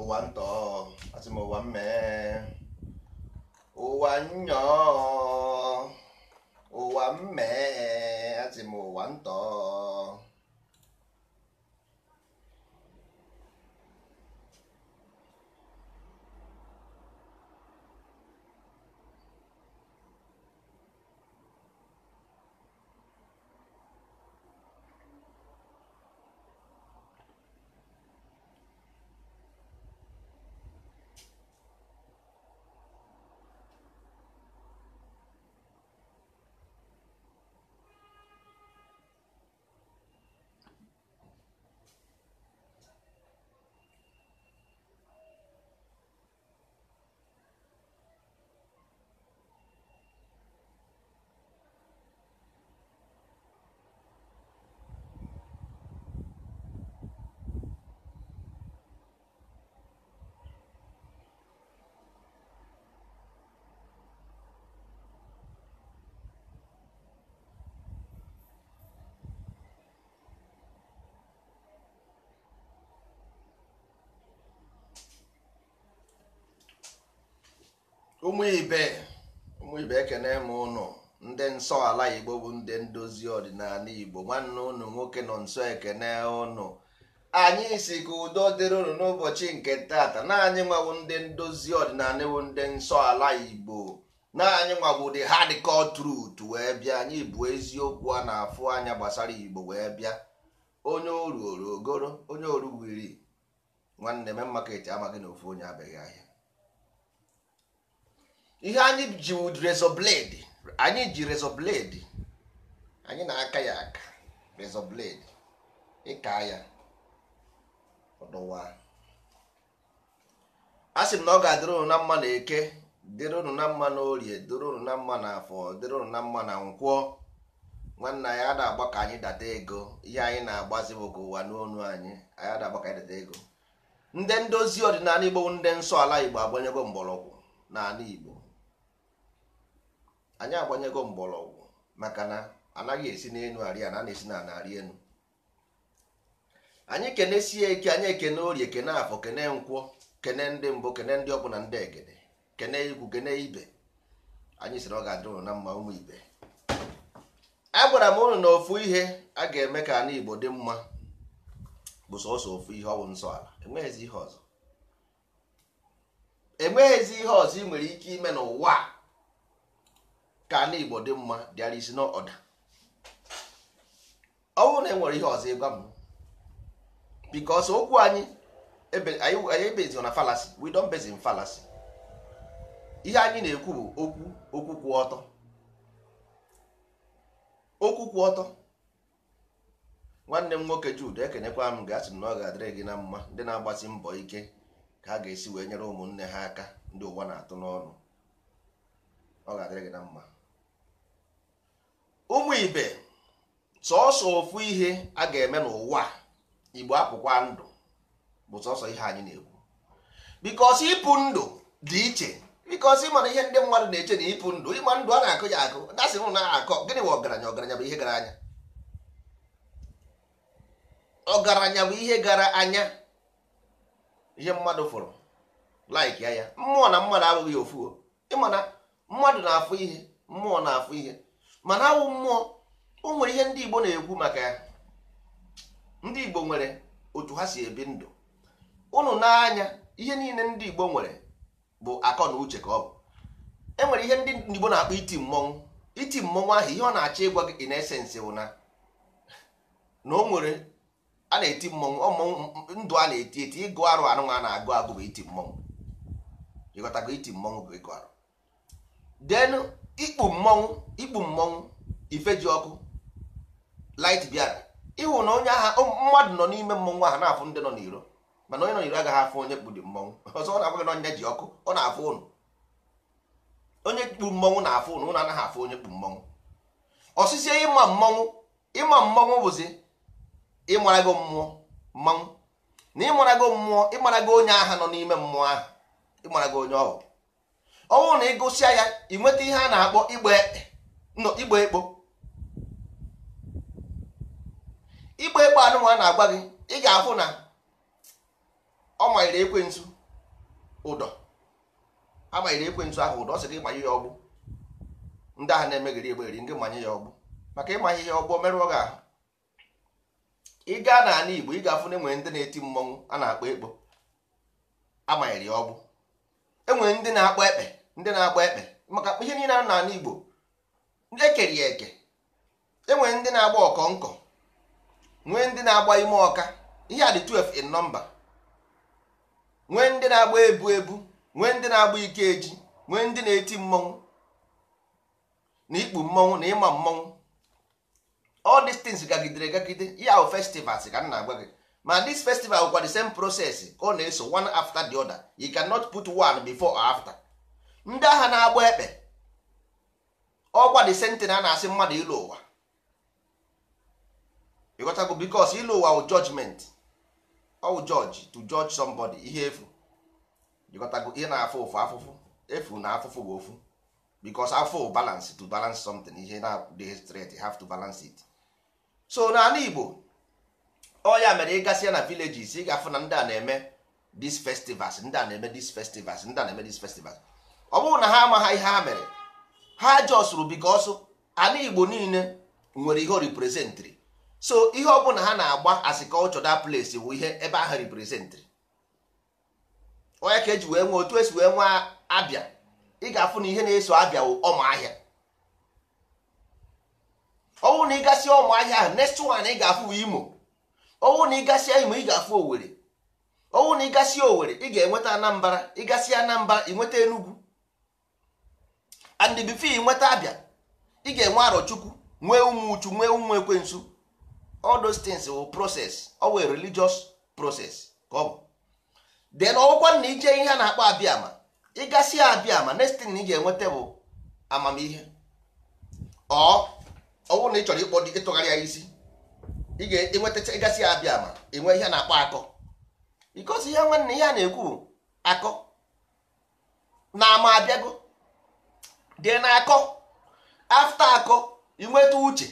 ụwa ntọ asị m ụwa mmee ụwa nnyọọ ụwa mmee asị m ụwa ntọ ụmụ ibe ụmụ ibe ekene m ụnụ ndị nsọ ala igbo bụ ndị ndozi ọdịnala igbo nwanne ụnụ nwoke nọ nsọ ekene ụnụ anyị si ka udo dịrị ụnụ n'ụbọchị nke tata naanị nwawo ndị ndozi ọdịnala ewu ndị nsọ ala igbo naanị nwawo dị hardcore truth wee bịa anyị bụ eziokwu a na-afụ anya gbasara igbo wee bịa onye oruoro ogoro onye oru wiri nwanne me maka eti amaghị na ofu onye abịaghị ahịa ihe anyị ji rezọ blade anyị ji rezọ blade anyị na-aka ya aka rezọ blade ịka ya ọdụwa a sị m na ọ ga-adịrị unu na mma na eke dịrị unu na mma na orie dịrị unu na mma na afọ dịrị unu na mma na nkwọ nwanne anyị a na-agba ka anyị data ego ihe anyị na-agbazi bụ ụwa n'onu anyị anyị a na-agba ka anyị data ego ndị ndozi ọdịnala igbo ndị nsọ ala igbo agbanyego mgbọrọgwụ n'ala igbo anyị agbanyego mgbọrọgwụ maka na anaghị esi n'elu arịa na a na-esi na ana elu anyị kenesie ike anyị ekene orie kene afọ kene nkwọ kene ndị mbụ kene ndị ọbụla ndị egede kene igwu kene ibe anyị sịrị ọ ga-adịrụ na mma ụmụ ibe agwara m unu na ofu ihe a ga-eme ka ana Igbo dị mma bụ sọsọ ofu ihe ọwụ nsọ ala enweghịzi ihe ọzọ enweghịzi ihe ọzọ ị nwere ike ime n'ụwa ka ala igbo dị mma there is no ọ bụrụ na e nwere ihe ọzọ ịgwa m bikos okwu anyị anyị ebezi na falasi we falasi ihe anyị na-ekwu bụ okwu okwu kwụ ọtọ okwu kwụ ọtọ nwanne m nwoke Jude ekenekwa m gasị m na ọ ga-adịrị gị na mma ndị na-agbasi mbọ ike ka ha ga-esi wee nyere ụmụnne ha aka ndị ụwa na-atụ n'ọnụ ọ ga-adịrị gị na mma ụmụ ibe sọọsọ ofu ihe a ga-eme n'ụwa igbo apụkwa ndụ bụ sọsọ ihe anyị na-ekwu bikos ịpụ ndụ dị iche bikos ịmana ihe ndị mmadụ na-eche na ịpụ ndụ ịma ndụ a na-akụ ya akụ dasị m na-akọ gịnị bụ ọgaranya ọgaranya bụ ihe gara anya ọgaranya bụ ihe gara anya ihe mmadụ fụrụ laik ya ya mmụọ na mmadụ abụghị ofu ịmana mmadụ na-afụ ihe mmụọ na-afụ ihe mana awụ mmụọ o nwere ihe ndị Igbo na-ekwu maka ya ndị Igbo nwere otu ha si ebi ndụ ụnụ n'anya ihe niile ndị Igbo nwere bụ akọ na uche ka ọ bụ enwere ihe ndị Igbo na-akpọ iti mmọnwụ iti mmọnwụ ahụ ihe ọ na-achọ ịgwa gị in bụ na na o nwere a na-eti mmọnwụ ndụ a na-eti eti ịgụ arụ anụ a na-agụ agụ bụ iti mmọnwụ ịghọtago iti mmọnwụ bụ ịgụ arụ denu ikpu mmọnwụ ikpu mmọnwụ ifeji ọkụ light bịara ịhụ na onye agha mmadụ nọ n'ime mmọnwụ ahụ na-afụ ndị nọ n'iro mana onye nọ n'iro agaghị afụ onye kpudi mmọnwụ ọzọ ọ na-agwaghị na onye ji ọkụ ọ na-afụ ụnụ onye kpu mmọnwụ na-afụ ụnụ ụnụ anaghị afụ onye kpu mmọnwụ ọsịsị ịma mmọnwụ ịma mmọnwụ bụzi ịmarago mmụọ mmanwụ na ịmarago mmụọ ịmarago onye agha nọ n'ime mmụọ ahụ ịmarago onye ọhụụ ọnwụ na ịgụsịa ya ịnweta ihe a na-akpọ igbe ekpo igbe ekpo anụnwa na-agba gị ị ga-afụ na ọ manyere ekwentụ ụdọ a ekwentụ ahụ ụdọ sị gị manye ya ọgbụ ndị ahụ na-emegheri egberi ndị manye ya ọgbụ maka ịmanye ya ọgbụ merụọ gị ahụ ị gaa n'ala Igbo ị ga-afụ na enwere ndị na-eti mmọnwụ a na-akpọ ekpo amanyere ya ọgbụ enwere ndị na-akpọ ekpe ndị na-agba ekpe maka ihe niile a na Igbo ekeri ya eke enwere ndị na-agba ọkọ nkọ nwee ndị na-agba ime ọka ihe a dị 12 in nọmba nwee ndị na-agba ebu ebu nwee ndị na-agba ike eji nwee ndị na-eti mmọnwụ na ikpu mmọnwụ na ịma mmọnwụ all these things gagidere gagide ya ahụ festivals ka m na-agwa gị ma this festival bụkwa the same process ka ọ na-eso one after the other you cannot put one before or after. ndị agha na-agba ekpe ọkwa dị sentina na-asị mmadụ ịlụ ụwa ịghọtago bikos ịlụ ụwa wụ judgment ọwụ judge to judge somebody ihe efu ịghọtago ihe na-afụ ụfụ afụfụ efu na afụfụ bụ ofu bikos afụ balance to balance something ihe na-adịghị straight have to balance it so n'ala Igbo ọ mere ịgasị ya na villages ị ga-afụ na ndị a na-eme these festivals ndị a na-eme these festivals ndị a na-eme these festivals ọ bụrụ na ha amaghị ihe ha mere ha jọsụrụ bikọsụ ana igbo niile nwere ihe o reprezentịrị so ihe ọ na ha na-agba asikọlchọ da place bụ ihe ebe ahụ reprezentịrị onye ka eji wee nwee otu esi wee nwee abịa ị ga-afụ na ihe na-eso abịa ọmụahịa ọnwụ na ịgasị ọmụahịa ahụ next one ị ga-afụ imo ọnwụ na ịgasịa imo ị ga-afụ owere ọnwụ na ịgasịa owere ị ga-enweta anambara ịgasịa anambara ị nweta enugwu and the bifo nweta abịa ị ga-enwe arọchukwu nwee ụmụ uchu nwee ụmụ ekwensu all those things will process ọ wee religious process ka ọ bụ then ọgwụkwa na ije ihe a na-akpọ abịama ịgasị abịama next thing ị ga-enweta bụ amamihe ọ ọwụ na ị chọrọ ịkpọ ịtụgharị ya isi ị ga-enweta ịgasị abịama enwe ihe a na-akpọ akọ because ihe nwanne ihe a na-ekwu akọ na ama abịago dị na akọ afta akọ inweta uche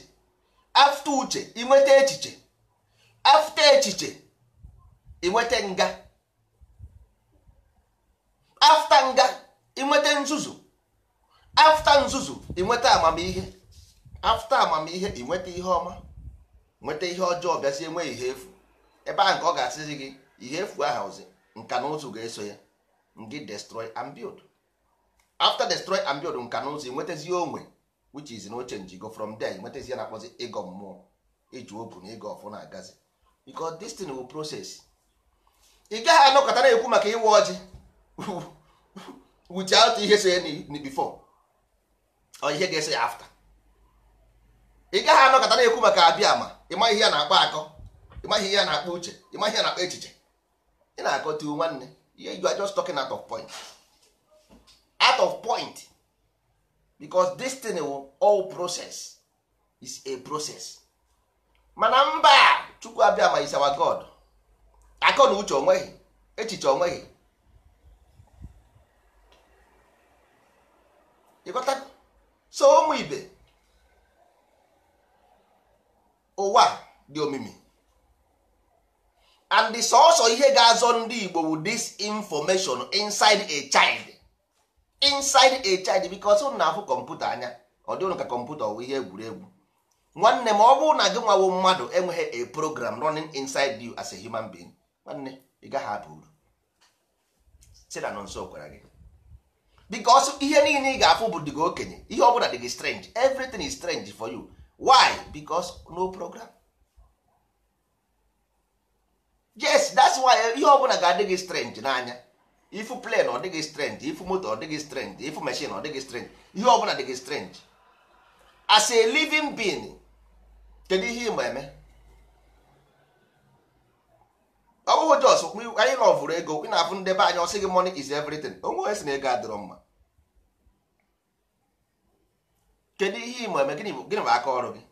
afta uche inweta echiche afta echiche inweta nga afta nga inweta nzuzu afta nzuzu inweta amamihe afta amamihe inweta ihe ọma nweta ihe ọjọọ bịazie nwee ihe efu ebe ahụ nke ọ ga-asịzi gị ihe efu ahụ ozi nka na ụzụ ga-eso ya ngị destroy and after destroy and build nka na ụzọ nwetazi onwe which is no change go from there nwetazi na akpọzi ịgọ mmụọ iji na ịgọ ọfụ na agazi because this thing will process ị gaghị anọkọta na-ekwu maka ịwa ọjị out ihe so ya before or ihe ga-eso ya after ị gaghị anọkọta na-ekwu maka abịa ma ịma ihe a na-akpọ akọ ịma ihe a na-akpọ uche ịma ihe a na-akpọ echiche ị na-akọta akọ nwanne ihe you ajọ just at of point out of point because this thing will oh, all process is a process mana mba chukwu abịa ma is our god akọ na uche onweghị echiche onweghị ịghọta so ụmụ ibe ụwa dị omimi and the sọsọ ihe ga-azọ ndị Igbo with this information inside a child inside a child because ụnụ na-afụ kọmputa anya ọ dị ka kọmputa ọwụ ihe egwuregwu nwanne ma ọ bụrụ na gị nwawo mmadụ enweghị a program running inside you as a human being nwanne ị gaghị aba uru si na nso gwara gị because ihe niile ị ga-afụ bụ dị gị okenye ihe ọ bụla dị gị strange everything is strange for you why because no program yes that's why ihe ọ bụla ga-adị gị strange n'anya ifu na ọ dịghị strength ifu moto ọ dịghị strength ifu machine ọ dịghị strength ihe ọbụla dịghị strength as a living being kedu ihe ịma eme ọ bụghị jos anyị lọvụrụ ego ị na-afụ ndebe anya ọsị money is everything onwe onye si na ego adịrọ mma kedu ihe ịma eme gịnị bụ aka ọrụ gị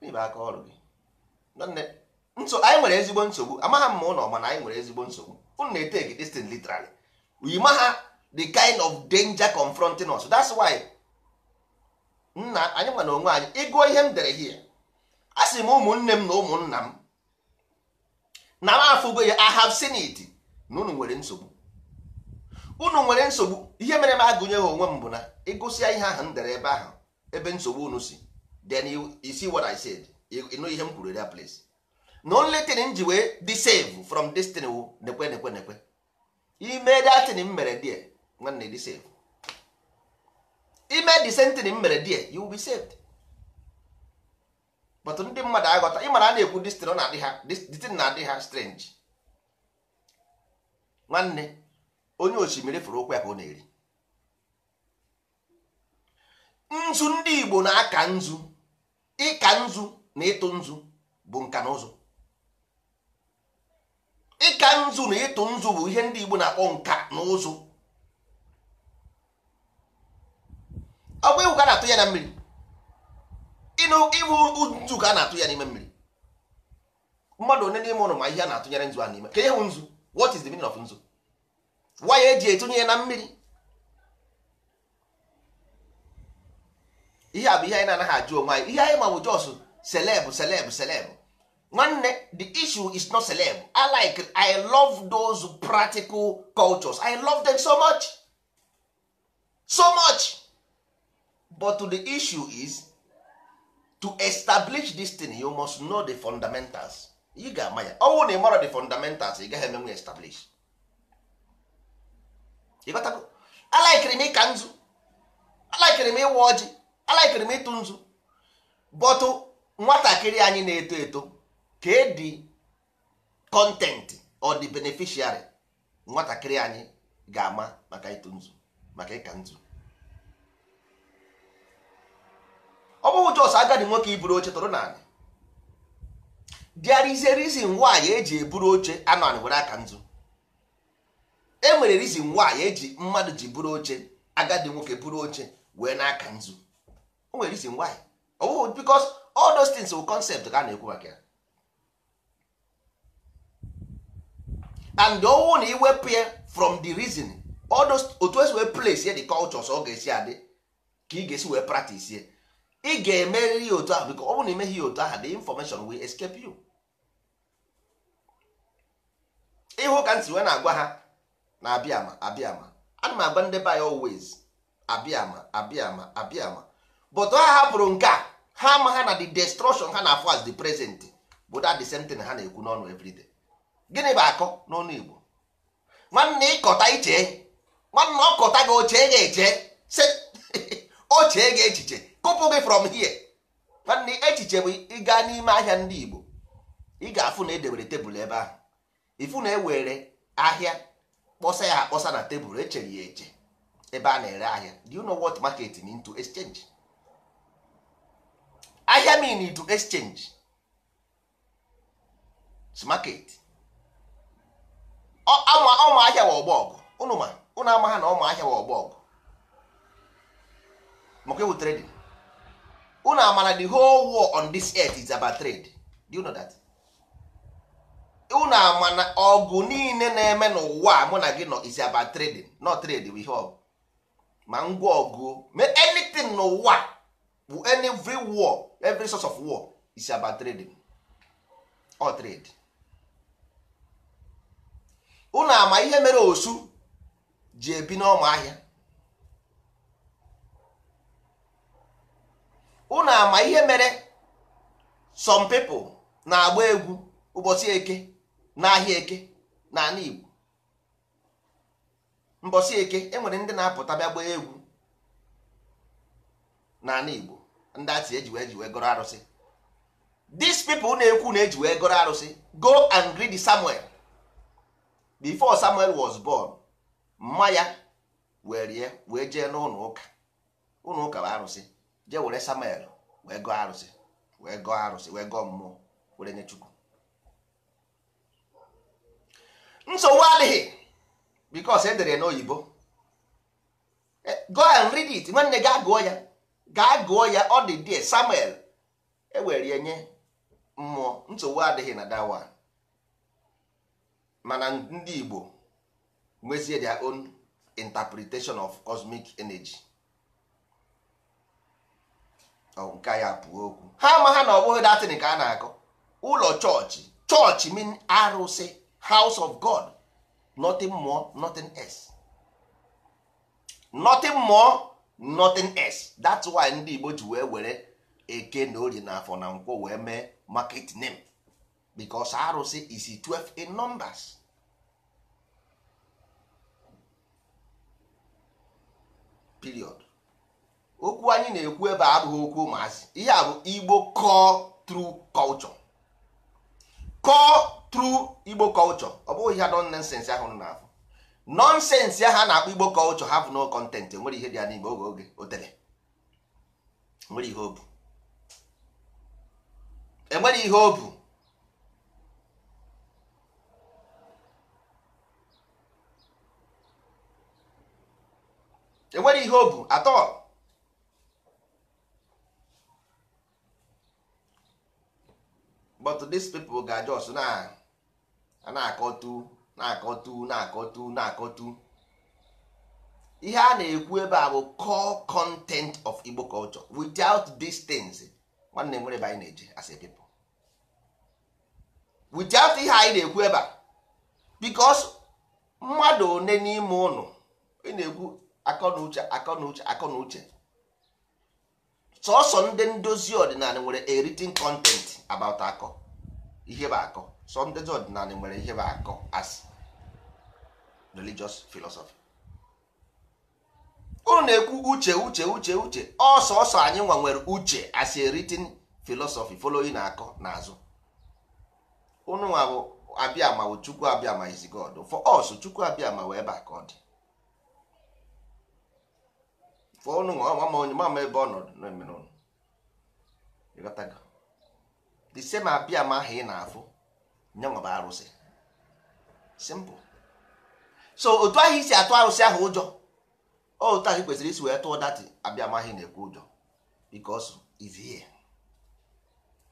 gịnị bụ aka ọrụ gị nso anyị nwere ezigbo nsogbu amagha m ma ụlọ mana anyị nwere ezigbo nsogbu unu na-eteki this thing literally we maha the kind of danger confronting us that's why nna anyị nwa onwe anyị ịgụọ ihe m dere hie a sị m ụmụnne m na ụmụnna m na m afụgo ya I have na unu nwere nsogbu unu nwere nsogbu ihe mere m agụnyeghị onwe m bụ na ịgụsịa ihe ahụ m dere ebe ahụ ebe nsogbu unu si then you see what I said ịnụ ihe m kwuru that place na only thing m ji wee dị save from destiny wu nekwe nekwe nekwe ime datin m mere die nwanne dị save ime disentin m mere die you will be saved but ndị mmadụ aghọta ịmara a na-ekwu destin na-adị ha destin na-adị ha strange nwanne onye osimiri fụrụ okwu ya ka ọ na-eri nzu ndị Igbo na-aka nzu ịka nzu na ịtụ nzu bụ nka na ụzụ ịka nzu na ịtụ nzu bụ ihe ndị Igbo na-akpọ nka na ụzụ ọ bụ ka a na-atụ ya na mmiri ịbụ nzu ka a na-atụ ya n'ime mmiri mmadụ one n'ime ụlọ ma ihe a na-atụnyere nzu a n'ime ka ihe nzu what is the meaning of nzu waya eji etụnye ya na mmiri ihe a bụ ihe anyị na-anaghị ajụ onwe anyị ihe anyị ma bụ jos selebụ selebụ selebụ nwanne the issue is not celeb i like i love those practical cultures i love them so much so much but the issue is to establish this thing you must know the fundamentals you ga-ama ya ọnwụ na ịmara the fundamentals ị gaghị emenwe establish i alaikiri m ịka nzu alaikiri m ịwa ọjị alaikiri m ịtụ nzu bọtụ nwatakịrị anyị na-eto eto Ka dị kọntentị ọ dị nwatakịrị anyị ga-ama maka ịtụ nzu maka ịka nzu ọ bụghị jos agadi nwoke iburu oche tụrụ naanị there is a reason why eji eburu oche anọ anị were aka nzu e nwere reason why eji mmadụ ji buru oche agadi nwoke buru oche wee n'aka nzu o nwere reason why ọ bụghị because all those things ka a na-ekwu maka ya and owu na iwepụ ya from the reason otu esi wee place ya the cultures ọ ga-esi adị ka ị ga-esi wee practice ya ị ga eme ya otu ahụ biko ọ bụ na imeghị ya otu ahụ the information will escape you ịhụ ka ntị wee na-agwa ha na abịama abịama ana m agba ndị be anyị always abịama abịama abịama but ha hapụrụ nke a ha ama ha na the destruction ha na-afụ as the present bụ that the same thing ha na-ekwu n'ọnụ everyday gịnị bụ akọ n'ọnụ Igbo nwanne ịkọta iche nwanne ọkọta gị oche ga eche se ochee ga echiche kụpụ gị from here nwanne echiche bụ ịga n'ime ahịa ndị Igbo ị ga-afụ na edebere tebụl ebe ahụ ifu na ewere ahịa kpọsa ya akpọsa na tebụl echere ya eche ebe a na-ere ahịa do you know what market to exchange ahịa mean to exchange market ama ụmụahịa wa ọgbọgụ ụnụ ma ụnụ ama na ụmụahịa wa ọgbọgụ maka ewu trading ụnụ amana the whole war on this earth is about trade do you know that ụnụ ama na ọgụ niile na-eme n'ụwa mụ na gị nọ is about trading not trade with ihe ma ngwa ọgụ anything n'ụwa bụ every war every source of war is about trading or trade ụnụ ama ihe mere osu ji ebi n'ọma ahịa unu ama ihe mere some pipo na-agba egwu ụbọchị eke n'ahịa eke n'ala Igbo eke enwere ndị na-apụta bịa egwu n'ala Igbo ndị atị eji wee ji wee arụsị these na-ekwu na eji wee arụsị go and greet Samuel before samuel was born mmanya ya were wee jee n'ụlọ ụka ụlọ ụka bụ arụsị jee were samuel wee gọọ arụsị wee gọọ arụsị wee gọọ mmụọ were nye chukwu nsogbu adịghị because edere n'oyibo e, go and read it nwanne gaa gụọ ya gaa gụọ ya ọ dị die samuel ewerie nye mmụọ nsogbu adịghị na dawa mana ndị Igbo nwezie their own interpretation of cosmic energy nke ya pụọ okwu ha ama ha na ọ bụghị datin ka a na-akọ ụlọ chọọchị chọọchị mean arụsị house of God nothing more nothing else nothing more nothing else that's why ndị Igbo ji wee were eke na orie na afọ na nkwọ wee mee market name because arụsị is 12 in numbers period okwu anyị na-ekwu ebe abụghị okwu ụmụazị ihe a bụ igbo core true culture core true igbo culture ọ bụghị ihe don nonsense ahụ na-afụ nonsense ya ha na-akpọ igbo culture bụ no content nwere ihe dị ya n'igbo oge oge o tere nwere ihe obu enwere ihe obu enwere ihe o bụ atọ but these people ga just na na-akọtu na-akọtu na-akọtu na-akọtu ihe a na-ekwu ebe a bụ core content of Igbo culture without these things nwanne nwere ebe anyị na-eje as a people without ihe anyị na-ekwu ebe a because mmadụ one n'ime ụnụ ị na-ekwu akọ na uche akọ uche uche sọsọ ndị ndozi ọdịnala nwere a kọntent content about akọ ihe bụ akọ sọ ndozi ọdịnala nwere ihe bụ akọ as religious philosophy unu na-ekwu uche uche uche uche ọsọsọ anyị nwa nwere uche as a philosophy following na akọ n'azụ unu nwa bụ abịa ma chukwu abịa ma is God for us chukwu abịa ma wee ebe a dị onye mama ebe ọ nọ the same abịa ma ahụ ị na-afụ nyanwa bụ arụsị simple so otu ahụ isi atụ arụsị ahụ ụjọ otu ahụ kwesịrị isi wee tụọ dati abịa ma ahụ na-ekwu ụjọ because is here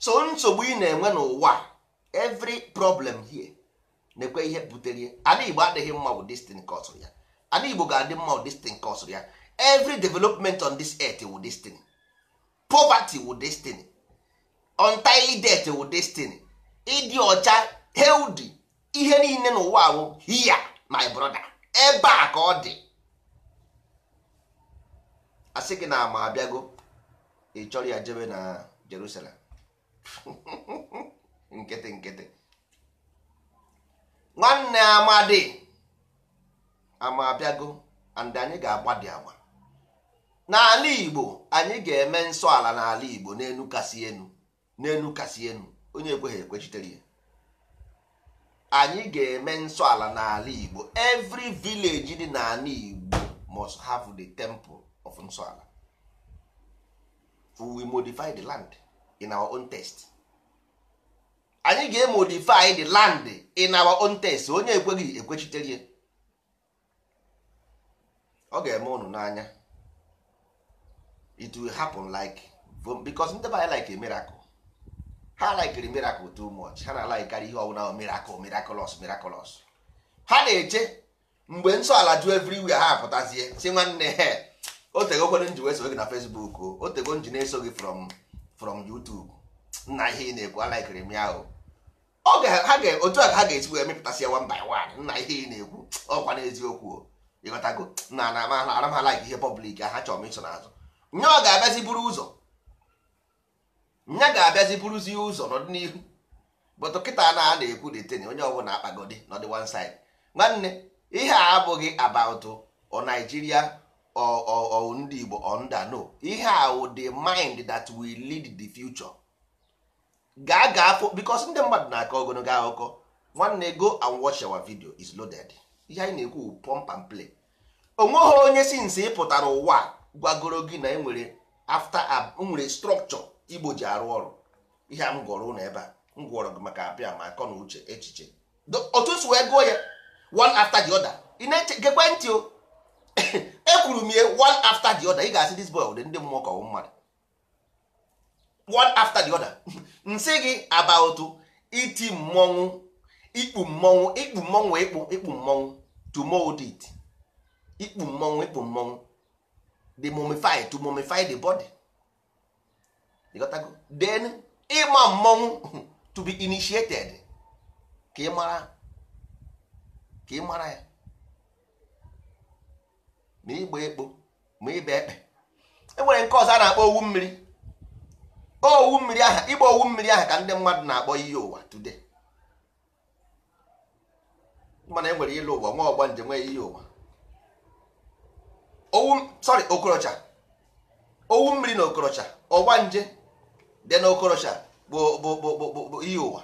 so nsogbu ị na-enwe n'ụwa every problem here na-ekwe ihe butere ya igbo adịghị mma wụ destin kọsụrụ ya ana igbo ga-adị mma wụ destin kọsụrụ ya every development on this earth wu destiny poverty wu destiny untimely death wu destiny ịdị ọcha healthy ihe niile n'ụwa wụ hia my brother ebe a ka ọ dị asị gị na ama abịago ị chọrọ ya jebe na Jerusalem nkịtị nkịtị nwanne amadi ama abịago and anyị ga-agbadi agba n'ala igbo anyị ga-eme nsọ ala n'ala igbo n'enu kasị enu n'enu kasị enu onye ekweghị ekwechitere ya anyị ga-eme nsọ ala n'ala igbo every village dị n'ala igbo must have the temple of nsọ ala we modify the land in our own taste anyị ga-emodify the land in our own taste onye ekweghị ekwechitere ya ọ ga-eme unu n'anya it will happen like because ndị be anyị like a miracle ha likere miracle too much ha na-alikekarị ihe ọbụla miracle miraculous miraculous ha na-eche mgbe nsọ ala ju everywhere ha apụtazie si nwanne he o tegokwere nji wee gị na Facebook o o tego nji na-eso gị from from YouTube nna ihe ị na-ekwu alikere m ya o otu a ha ga-esi wee mepụtasị ya one by one nna ihe ị na-ekwu ọkwa n'eziokwu ịghọtago na na ama ha like ihe public ha chọrọ m iso n'azụ nya ga-abịazi buru ụzọ nya ga-abịazi buruzi ụzọ n'ọdịnihu but kịta na a na-ekwu detin onye ọbụla akpagodi n'ọdị one side nwanne ihe a abụghị about o Nigeria o ndị Igbo o nda no ihe a wụ the mind that will lead the future gaa gaa fo because ndị mmadụ na-akọ ogologo akụkọ nwanne go and watch our video is loaded ihe anyị na-ekwu pump and play onweghị onye sinsi ịpụtara ụwa a. gwagoro gị na enwere afta nwere strọkchọ igbo ji arụ ọrụ ihe a m gụrụ ụlọ ebe a m gwọrọ gị maka abịa ma akọ na uche echiche otu si wee gụọ ya one after the other ị na-eche gekwe ntị o ekwuru m ihe one after the other ị ga-asị this boy ụdị ndị mmụọ ka ọ mmadụ one after the other nsị gị about iti mmọnwụ ikpu mmọnwụ ikpu mmọnwụ ikpu ikpu mmọnwụ to ikpu mmọnwụ ikpu mmọnwụ the mummify to mummify the body go then ịma mmọnwụ to be initiated ka ị mara ka ị mara ya ma ịgba ekpo ma ịba ekpe enwere nke ọzọ a na-akpọ owu mmiri owu mmiri aha ịgba owu mmiri aha ka ndị mmadụ na-akpọ ihe ụwa today mana enwere ịlụ ụwa nwa ọgba njem nwee ihe ụwa owu sorry okorocha owu mmiri na okorocha ọgba nje dị na okorocha bụ bụ bụ bụ ihe ụwa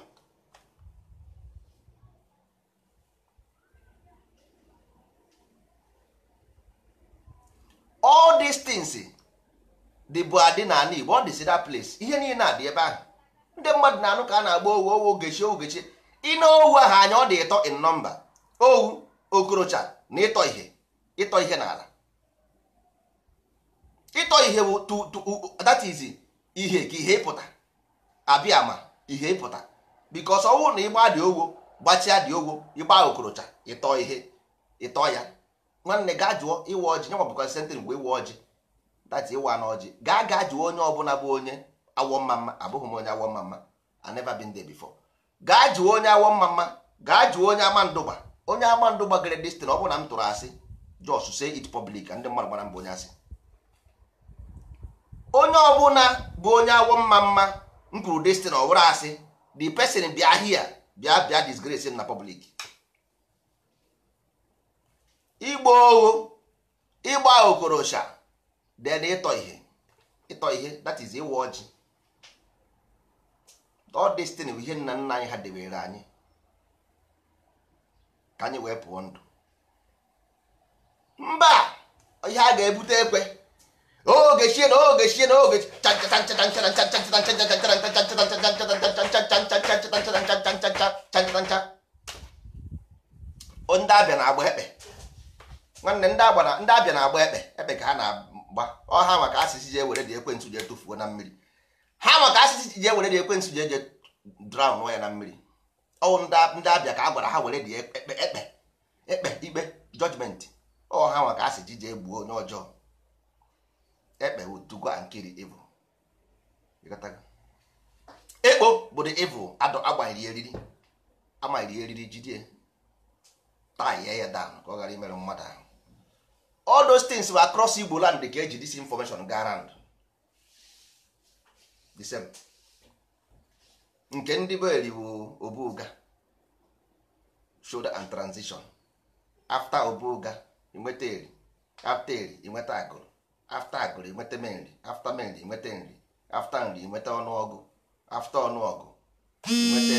all these things dịbụ adị na ala Igbo ọ dịsi that place ihe niile adị ebe ahụ ndị mmadụ na-anụ ka a na-agba owu owu ogechi ogechi ịna owu ahụ anya ọ dị ịtọ in nọmba owu okorocha na ịtọ ihe ịtọ ihe n'ala ịtọ ihe bụ that is ihe ka ihe ịpụta abịa ma ihe ịpụta because ọnwụ na ịgba dị ogwo gbachia dị ogwo ịgba okorocha ịtọ ihe ịtọ ya nwanne gaa jụọ ịwa ọjị nye mabụkwa sentịn mgbe ịwa ọjị dati ịwa na ọjị gaa gaa jụọ onye ọbụla bụ onye awọ mmamma abụghị m onye awọ mmamma I never been there before gaa jụọ onye awọ mmamma gaa jụọ onye ama ndụgba onye ama ndụgba gere destin ọ bụ na m tụrụ asị just say it public ndị mmadụ gbara mbụ onye asị onye ọbụla bụ onye awọ mma mma m kwuru destin ọ bụrụ asị the person bịa hia bịa bịa disgrace na public igba ogho ịgba okorocha then ịtọ ihe ịtọ ihe that is ịwa ọjị all destin bụ ihe nna nna anyị ha debere anyị ka anyị wee pụọ ndụ mba ihe a ga-ebute ekwe oge chie na oge chie na oge ndị abịa na-agba ekpe nwanne ndị abịa na-agba ekpe ka ha na-agba ọ maka asịsị ji ewere dị ekwentị ji etufuo na mmiri ha maka asịsị ji ewere dị ekwentị drawn ya na mmiri ọwụ ndị abịa ka a gwara ha were dị ekpe ekpe ikpe jọjmenti maka asịsị ji onye ọjọọ ekpe to go and kill the evil ekpo bụ the evil agbanyere eriri amanyere eriri jide tie ya dan ka ọ ghara imerụ mmadụ ahụ all those things were across Igbo land ka eji dis information ga around the same nke ndị beri bụ obuga shoulder and transition after obuga inweta eri after eri inweta agụrụ afta agụrụ inweta nri afta nri inweta nri afta nri inweta ọnụọgụ afta ọnụọgụ inweta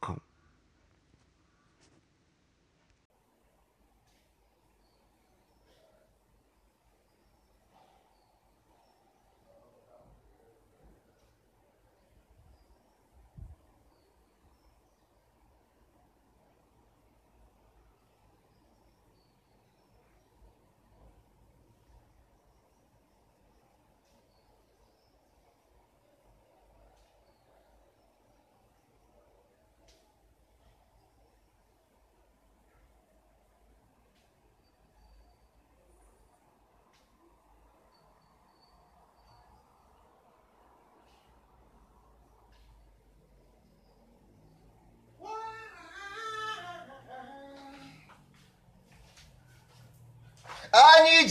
com.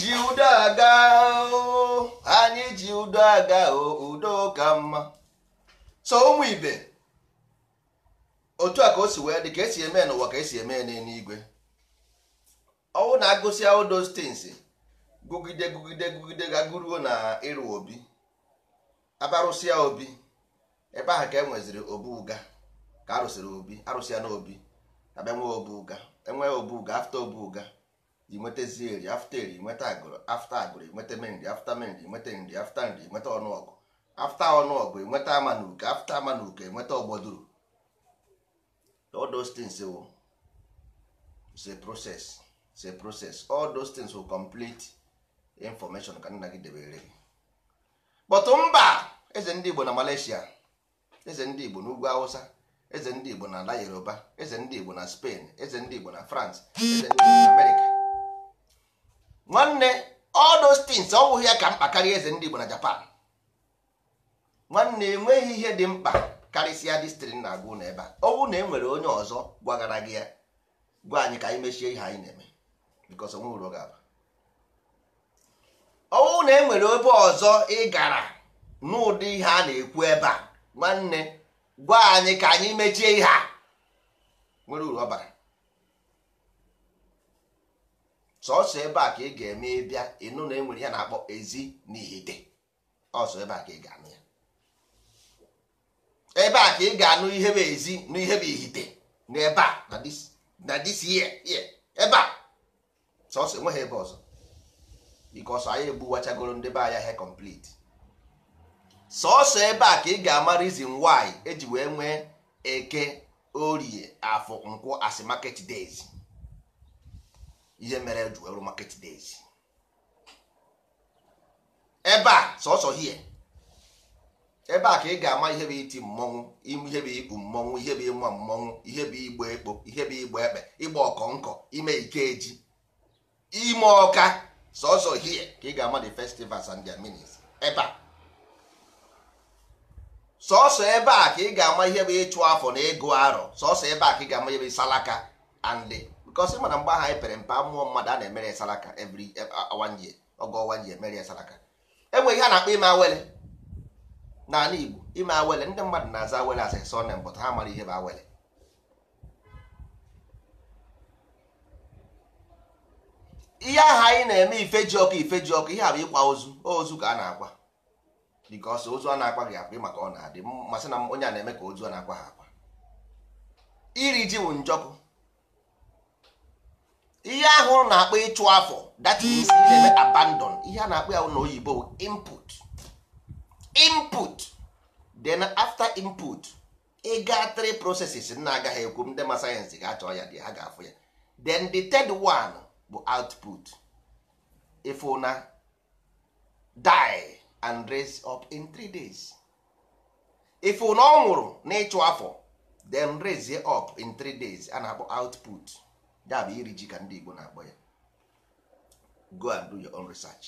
ji udo aga anyị ji udo aga udo ka mma so ụmụ ibe otu a ka osi wee dị ka esi eme n'ụwa ka esi eme n'eluigwe ọnwụ na agụsị udo those gụgide gụgide gụgide gaguruo na ịrụ obi abarụsịa obi ebe ahụ ka enweziri nweziri obu ka arụsịrị obi arụsịa n'obi abịa nwee obu ụga e obu afta inwetazi eri afta eri nweta agụrụ afta agụrụ enweta nri afta nri nweta nri afta nri nweta ọnụọgụ afta ọnụọgụ enweta ama na uke afta ama na uke ọgbọduru oh, all those things will it's process it's process all those complete information ka nna gị debere gị mba eze ndị Igbo na Malaysia eze ndị Igbo na Hausa eze ndị Igbo na ala Yoruba eze ndị Igbo na Spain eze ndị Igbo na France eze nwanne all ọ wụghị ya ka mkpa karịa eze ndị Igbo na Japan nwanne enweghị ihe dị mkpa karịsịa distrin na-agụ na ebe a ọ na e nwere onye ọzọ gwagara gị ya gwa anyị ka anyị mechie ihe anyị na-eme ọ bụrụ na e nwere ebe ọzọ ị gara n'ụdị ihe a na-ekwu ebe a nwanne gwa anyị ka anyị mechie ihe a nwere uru ọ bara sọsọ ebe a ka ị ga-eme ịbịa ịnụ na enwere ya na-akpọ ezi na ihite ọsọ ebe a ka ị ga-anụ ya ebe a ka ị ga-anụ ihe bụ ezi na ihe bụ ihite na ebe a na this year ebe a sọsọ enweghị ebe ọzọ bikos anyị egbuwachagoro ndị be anya he complete sọsọ ebe a ka ị ga-ama reason nwaanyị eji wee nwee eke orie afọ nkwụ asị market days ihe mere e ju rụ market days ebe a sọsọ hie ebe a ka ị ga-ama ihe bụ iti mmọnwụ ihe bụ ikpu mmọnwụ ihe bụ ịma mmọnwụ ihe bụ igba ekpo ihe bụ igba ekpe ịgba ọkọ nkọ ime eji ime ọka sọsọ hie ka ị ga-ama the festivals and their meanings ebe a sọsọ ebe a ka ị ga-ama ihe bụ ịchụ afọ na ego arọ sọsọ ebe a ka ị ga-ama ihe bụ salaka and because mana mgba ha anyị pere mpe amụọ mmadụ a na-emere ya saraka every e, one ọwa ji emere ya saraka e ihe a na-akpọ ime awele n'ala Igbo ime awele ndị mmadụ na-aza awele as a surname ha mara ihe bụ awele ihe aha anyị na-eme ji ọkụ ji ọkụ ihe a bụ ịkwa ozu ozu ka a na-akwa bikọsị ozu a na-akwa gị akpa maka ọ na-adị mmasị na onye a na-eme ka ozu a na-akwa ha akwa iri ji bụ njọkụ ihe ahụ na-akpọ ịchụ afọ that means na-eme abandon ihe a na-akpọ ya na oyibo input input then after input ịga three processes na agaghị ekwu ndị ma sayensị ga-achọ ya dị ha ga-afụ ya then the third one bụ output ifuna die and raise up in three days ifuna ọ nwụrụ na ịchụ afọ then raise up in three days a na-akpọ output ya bụ iri ji ka ndị Igbo na-akpọ ya go and do your own research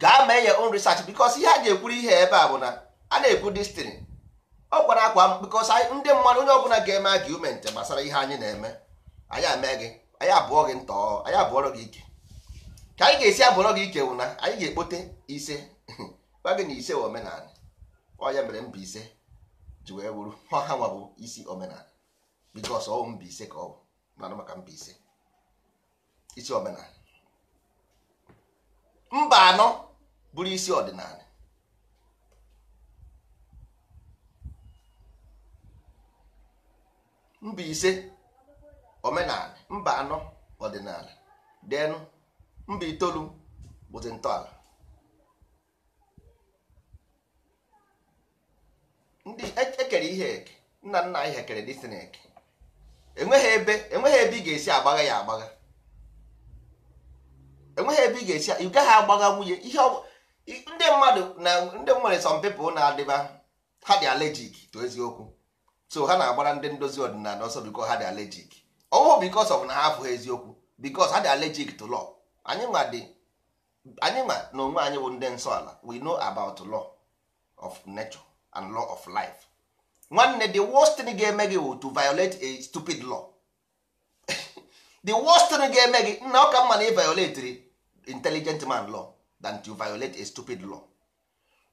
gaa mee your own research because ihe a ga-ekwuru ihe ebe a bụ na a na-ekwu destin ọ kwara akwa because ndị mmadụ onye ọbụla ga-eme argument gbasara ihe anyị na-eme anyị eme gị anyị abụọ gị ntọ anyị abụọrọ gị ike ka anyị ga-esi abụọrọ gị ike wụ na anyị ga-ekpote ise gwa gị na ise omenala ọ ya mere mba ise ji wee wuru ọha nwa bụ isi omenala bikos ọwụ Mbaise ka ọ bụ mana maka Mbaise isi omenala mba anọ bụrụ isi ọdịnala ise omenala mba anọ ọdịnala denụ mba itoolu bụzi ntọala ndị ekere e ihe eke nna nna anyị ha kere dịsịn eke enweghị ebe enweghị ebe ị ga-esi agbagha ya agbagha enweghị ebe ị ga-esi ị gaghị agbagha nwunye ihe ndị mmadụ na ndị nwere some people na-adịba ha dị allergic to eziokwu so ha na-agbara ndị ndozi ọdịnala ọsọ biko ha dị allergic ọwụ because of na ha afụghị eziokwu because ha dị allergic to law anyị ma dị anyị ma na onwe anyị bụ ndị nsọ ala we know about law of nature and law of life nwanne the worst thing ga-eme gị wụ to violate a stupid law the worst thing ga-eme gị nna ọka mma na ị violatri intelligent man law than to violate a stupid law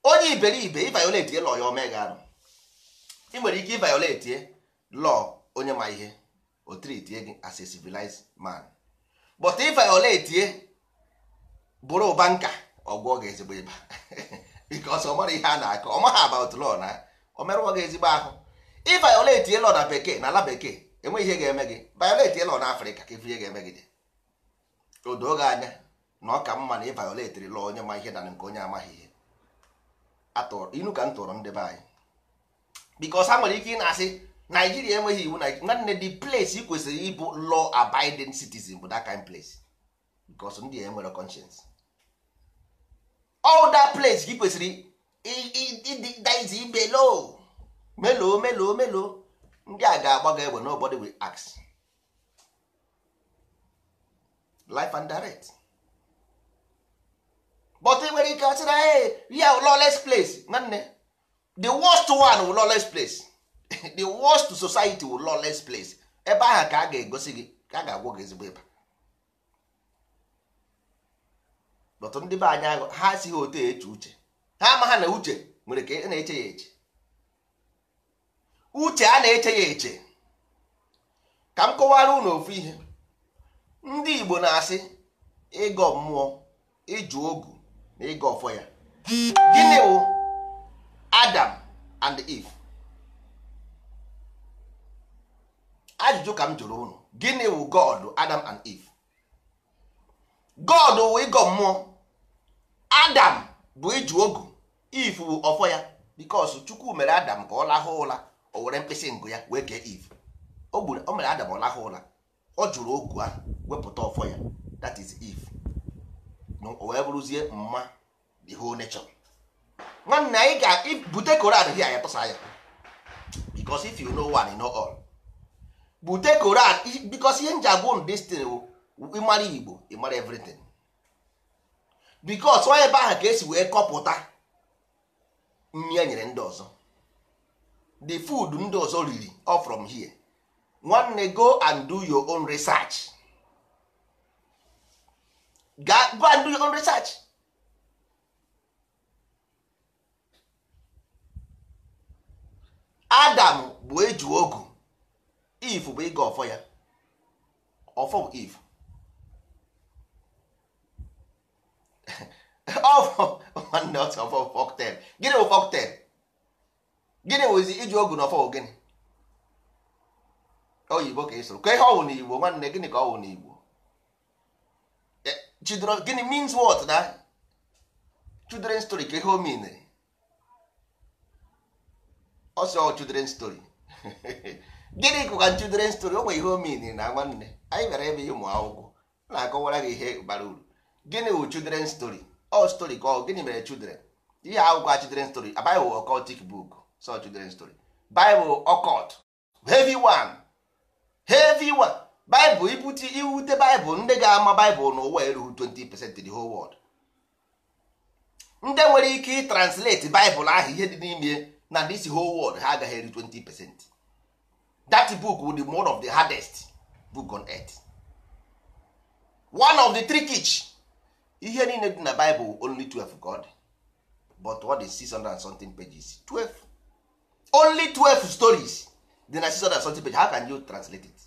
onye iberibe ịviolate law ya omega arụ ị nwere ike ịviolate law onye ma ihe o treatie gị as a civilized man but ịviolate bụrụ banka ọgwụ ọ ga-ezigbo ịba because ọ mara ihe a na-akọ ọ about law na o merụọ gị ezigbo ahụ ị violate elo na bekee na ala bekee enweghị ihe ga-eme gị violate elo na afrịka ka ihe ga-eme gị o doo gị anya na ọ ka mma na ị violetiri law onye ma ihe na nke onye amaghị ihe inu ka m tụrụ ndị be anyị bikos ha nwere ike ị na-asị naijiria enweghị iwu nwanne the place ị kwesịrị ịbụ law abiding citizen bụ that kind place bikos ndị a enwere conscience all that place gị kwesịrị ịdịdaiz ibe loo melo melo meloo ndị a ga-agba gị egbe nobodi wi ask life and direct but ị nwere ike asịra ee ya lawless place nwanne the worst one will lawless place the worst society will lawless place ebe ahụ ka a ga-egosi gị ka a ga agwụ gị ezigbo ịba but ndị be anyị ha esighị otu eche uche ha amagha ha na uche nwere ka na-eche ya eche uche a na-eche ya eche ka m kọwara unu ofu ihe ndị Igbo na-asị ịgọ mmụọ ịjụ ogu na ịgọ ọfọ ya gịnị wụ Adam and Eve ajụjụ ka m jụrụ unu gịnị wụ God Adam and Eve God wụ ịgọ mmụọ Adam bụ ịjụ ogu if bụ ọfọ ya because chukwu mere adam ka ọ lahụ ụra o were mkpịsị ngụ ya wee kee if o gburu o mere adam ọ lahụ ụra ọ jụrụ ogu ahụ wepụta ọfọ ya that is if o wee bụrụzie mma the whole nature nwanne anyị ga-bute koran hia ya tụsa ya because if you know one know all bute koran because ihe nji abụ destin ịmara igbo ịmara everything because onye ebe ahụ ka esi wee kọpụta nri e nyere ndị ọzọ the food ndị ọzọ riri all from here nwanne go and do your own research go and do your own research adam bụ eju ogu if bụ ịga ọfọ ya ọfọ bụ if nwanne ọsọ fọktel gịnị bụ fọktel gịnị wụzi iji ogu na ọfọ gịnị oyibo ka ịsụrụ ka ihe ọwụ igbo nwanne gịnị ka ọwụ n'igbo eh, chidoro gịnị means what na children story ka ihe o minere ọwụ oh, children story gịnị kụka children story o nwere ihe o minere na nwanne anyị gara ebe ịmụ akwụkwọ na-akọwara gị ihe bara uru gịnị wụ children story all story ka ọ gịnị mere children ihe akwụkwọ children story a bible occultic book so children story bible occult heavy one heavy one bible ibute iwute bible ndị ga-ama bible n'ụwa erughị 20% the whole world ndị nwere ike translate bible ahụ ihe dị n'ime na this whole world ha agaghị eri 20% that book would be one of the hardest book on earth one of the trickich ihe niile dị na Bible only 12 god but what is 600 and something pages 12 only 12 stories dị na 600 and something pages how can you translate it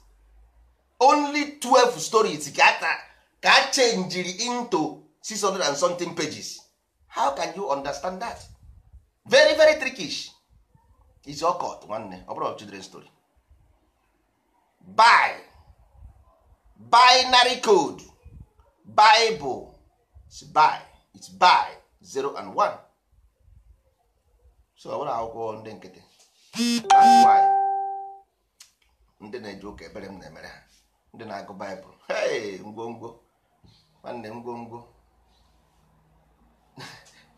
only 12 stories ka a ka a into 600 and something pages how can you understand that very very trickish is occult nwanne ọ bụrụ children story by binary code bible it's by 0 1 so ọ akwụkwọ ndị nkịtị ndị na-eji ebere m na-emere ha ndị na-agụ baịbụl ngwongwo nwanne ngwongwo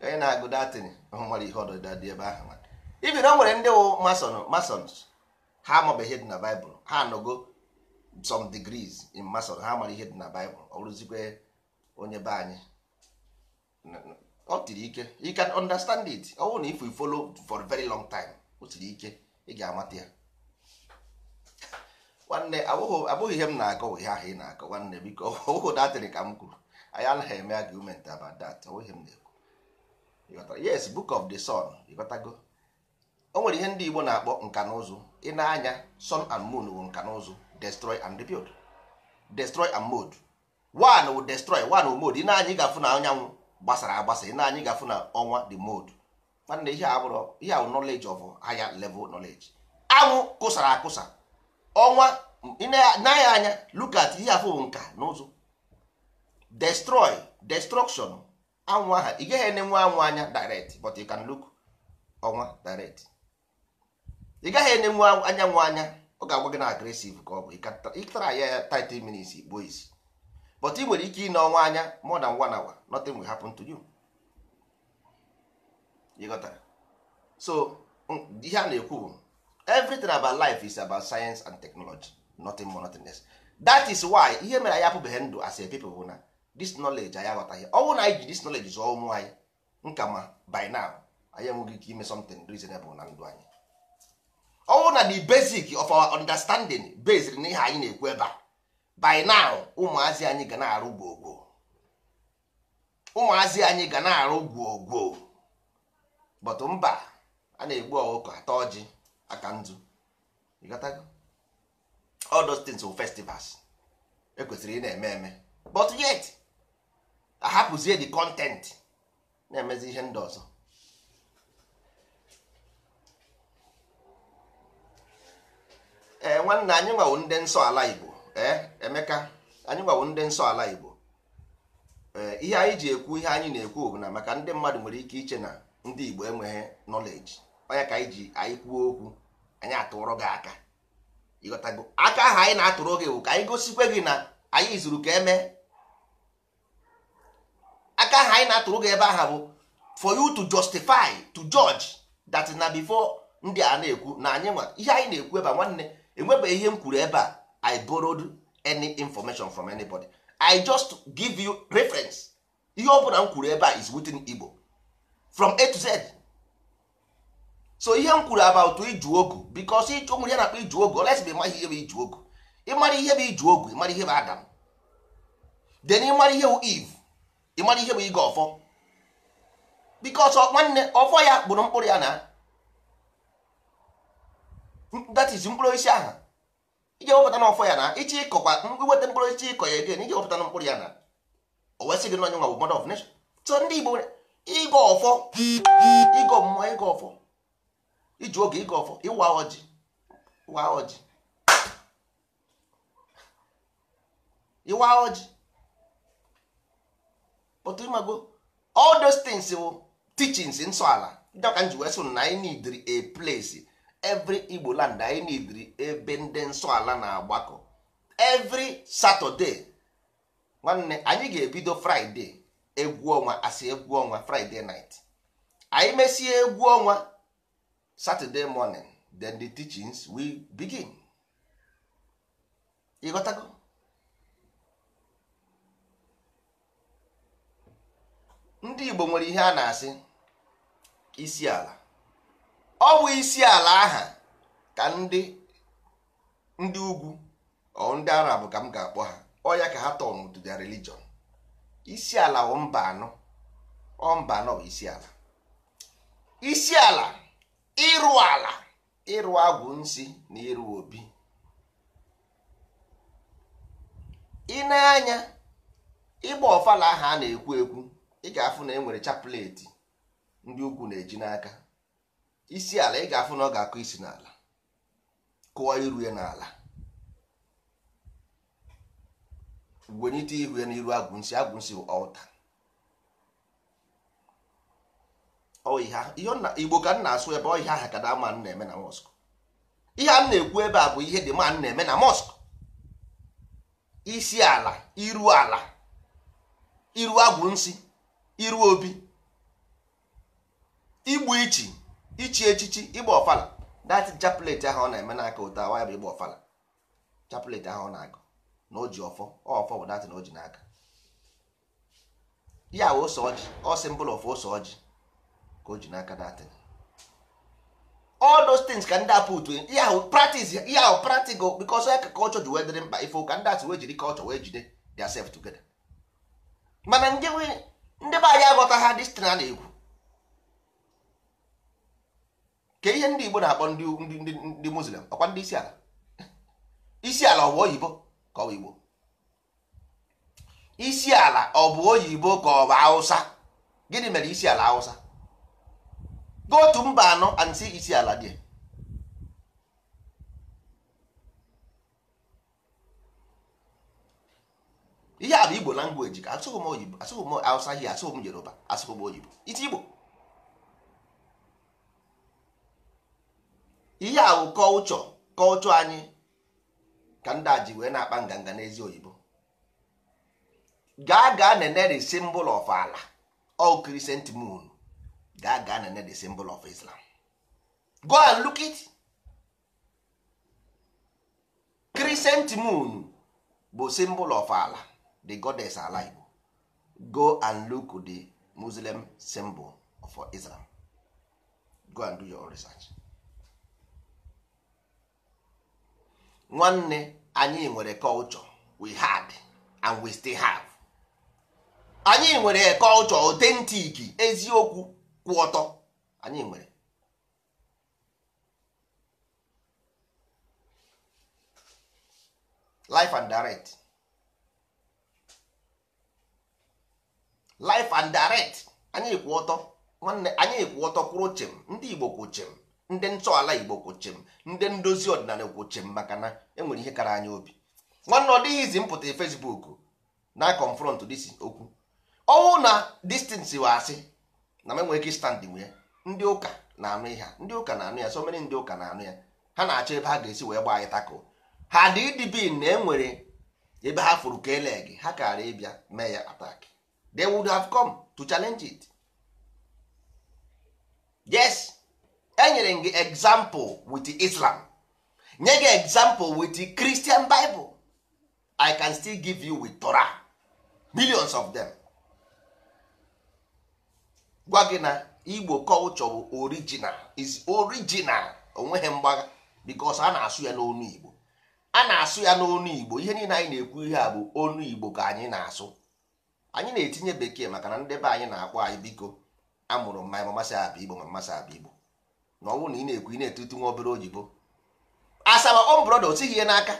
onye na-agụ datin nwere ihe ọdịda dị ebe ahụ nwere ndị wụ masons ha amabeghị ihe dị na baịbụl ha anọgo some degrees in mason ha ihe dị na baịbụl ọ rụzikwe onye be anyị ọ tiri ike you can understand it ọ bụrụ na if we follow for a very long time o tiri ike ị ga-amata ya nwanne abụghị ihe m na-akọ ihe ahụ ị na-akọ nwanne biko ọhụụ datịrị ka m kwuru anyị anaghị eme argument about that ọbụghị m na-ekwu yes book of the sun ịghọtago o nwere ihe ndị Igbo na-akpọ nka na ụzụ ị na-anya sun and moon wụ nka na ụzụ destroy and rebuild destroy and mode one wụ destroy one wụ mode ị na-anya ị ga-afụ na anyanwụ gbasara agbasa na anyị ga-afụ na ọnwa the mode nwanne ihe abụrụ ihe awụ knowledge of higher level knowledge anwụ kụsara akụsa ọnwa n'anya anya look at ihe afụ bụ nka n'ụzụ destroy destruction anwụ aha ị gaghị enenwe anwụ anya direct but you can look ọnwa direct ị gaghị enenwe anyanwụ anya ọ ga-agwa gị na agresive ka ọ bụ ịtara ya ya 30 minutes igbo isi but ị nwere ike ịnọ ọnwa anya more than one hour nothing will happen to you you got so ihe a na-ekwu bụ everything about life is about science and technology nothing more nothing less that is why ihe mere anyị apụbeghị ndụ as a people bụ na this knowledge anyị aghọtaghị ọ bụrụ na anyị ji this knowledge zụọ ụmụ anyị nka ma by now anyị enweghị ike ime something reasonable na ndụ anyị ọ bụrụ na the basic of our understanding based na ihe anyị na-ekwu ebe a by now ụmụazị anyị ga na-arụ gwogwo ụmụazị anyị ga na-arụ gwogwo but mba a na-egbu ọkụkọ ata ọjị aka ndụ all those things were festivals ekwesịrị ị na-eme eme but yet ahapụzie the content na-emezi ihe ndị ọzọ ee eh, nwanne anyị nwawo ndị nsọ ala Igbo Eh, emeka anyị gbawo ndị nsọ ala igbo eh, ihe anyị ji ekwu ihe anyị na-ekwu bụ na maka ndị mmadụ nwere ike iche na ndị igbo enweghị nọleji onye ka anyị ji anyị kwuo okwu anyị atụrụ gị aka ịghọtago aka ahụ anyị na-atụrụ gị bụ ka anyị gosikwe gị na anyị zuru ka eme aka ahụ anyị na-atụrụ gị ebe aha bụ for you to justify to judge that na before ndị a na-ekwu na anyị ihe anyị na-ekwu ebe nwanne enwebeghị ihe m kwuru ebe a i borrowed any information from anybody i just give you reference ihe ọ bụla m kwuru ebe a is within igbo from a to z so ihe m kwuru about iju ogu because o nwere ya na iju ogu olesi bụ ihe bụ iju ogu ịmara ihe bụ iju ogu ịmara ihe bụ adam then ịmara ihe bụ eve ịmara ihe bụ ige ọfọ because nwanne ọfọ ya gburu mkpụrụ ya na that is mkpụrụ isi aha ije wepụta n'ọfọ ya na iche ịkọkwa iweta mkpụrụ iche ịkọ ya eden ije wepụta mkpụrụ ya na o wee sị gị n'onye nwa bụ mother of nation so ndị Igbo ịgọ ọfọ ịgọ mmụọ ịgọ ọfọ iji oge ịgọ ọfọ ịwa ọjị ịwa ọjị ịwa ọjị pụtụ ịmago all those things bụ teachings nsọ ala dịka m ji wee na anyị need a place every igbo land anyị nidiri ebe ndị nsọ na-agbakọ every saturday nwanne anyị ga-ebido fraịdee egwu ọnwa asị egwu ọnwa anyị mesie egwu ọnwa satọdee morning then the teachings begin ịghọtago ndị igbo nwere ihe a na-asị isi ala ọ bụ isi ala aha ka ndị ndị ugwu ndị arab ka m ga-akpọ ha ọ ya ka ha tọn to their religion isi ala bụ mba anọ ọ mba anọ isi ala isi ala ịrụ ala ịrụ agwụ nsị na ịrụ obi ị na-anya ịgba ọfala aha a na-ekwu ekwu ị ga-afụ na e nwere chapleti ndị ugwu na-eji n'aka isi ala ị ga-afụ na ọ ga-akụ isi n'ala kụwa iru ya n'ala gwenyite ihu ya n'iru agwụnsị agwụnsị bụ ọta igbo ka m na-asụ ebe ọhịa aha ka dama na-eme na mosk ihe a na-ekwu ebe a bụ ihe dị ma na-eme na mosk isi ala iru ala iru agwụnsị iru obi igbu ichi ichi echichi ịgba ọfala dat chaplet ahụ ọ na-eme n'aka ụta awa ya bụ ịgba ọfala chaplet ahụ ọ na-agụ na o ọfọ ọfọ bụ dat na o n'aka ya wụ ose ọjị ọsị mbụl of ụsọ ọjị ka o ji n'aka dat all those things ka ndị apụt ya wụ practice ya wụ practical because ya ka culture ji wee dịrị mkpa ife ụka ndị atụ wee jiri culture wee jide their self together mana ndị be anyị aghọta ha dis na na-ekwu ka ihe ndị Igbo na-akpọ ndị ndị Muslim ọkwa ndị isi ala isi ala ọ bụ oyibo ka ọ bụ Igbo isi ala ọ bụ oyibo ka ọ bụ Hausa gịnị mere isi ala Hausa go otu mba anọ and isi ala dị ihe a bụ Igbo langweji ka asụghị m oyibo asụghị m Hausa ihe asụghị m Yoruba asụghị m oyibo isi Igbo ihe a bụ kọlchọ kọlchọ anyị ka ndị ji wee na-akpa nganga n'ezi oyibo gaa gaa nene the symbol of ala all crescent moon gaa gaa nene the symbol of Islam go and look it crescent moon bụ symbol of ala the goddess ala Igbo go and look the Muslim symbol for Islam go and do your own research. nwanne anyị nwere culture we had and we still have anyị nwere culture authentic eziokwu kwụ ọtọ anyị nwere life and direct life and direct anyị kwụ ọtọ nwanne anyị kwụ ọtọ kwụrụ chem ndị Igbo kwụ chem ndị ntọala igbo kwoche ndị ndozi ọdịnala kwoche maka na enwere ihe kara anya obi nwanne ọ dịghịzi mpụta fesbuk na confront dis okwu ọnwụ na distance wa asị na m enwere ike stand nwe ndị ụka na-anụ ihe ndị ụka na-anụ ya so mere ndị ụka na-anụ ya ha na-achọ ebe ha ga-esi wee gbaa anyị tako ha dị idb na enwere ebe ha furu ka e ha kara ịbịa mee ya attack they would have come to challenge it yes enyere gị example with Islam nye gị example with Christian bibụl I can still give you with Torah millions of them gwa gị na Igbo culture bụ original is original onweghị mgbagha because a na-asụ ya n'onu Igbo a na-asụ ya n'onu Igbo ihe niile anyị na-ekwu ihe a bụ onu Igbo ka anyị na-asụ anyị na-etinye bekee maka na ndị be anyị na-akpọ anyị biko amụrụ mma masị abịa Igbo ma mmasị abịa Igbo na ọnwụ na ị na-ekwu ị na-etutu nwa obere oyibo asaba ọ brọda osighi ihe n'aka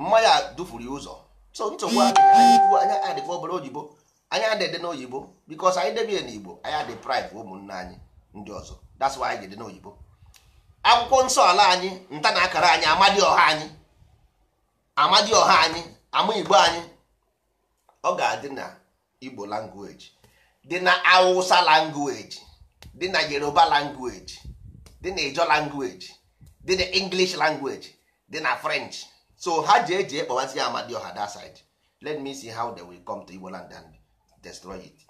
mmanya dufuru ya ụzọ so nsogbu anyị adịkwa obere oyibo anyị adịde n'oyibo bikos anyị debie Igbo anyị adị prive ụmụnne anyị ndị ọzọ that's why anyị dị n'oyibo akwụkwọ nsọ ala anyị nta na akara anyị amadi ọha anyị amadi ọha anyị ama igbo anyị ọ ga-adị na igbo language dị na awụsa langweji. dị na yoruba language dị na ijo language dị na english language dị na french so ha ji eji ekpọwazi ya amadioha that side let me see how they will come to igbo land and destroy it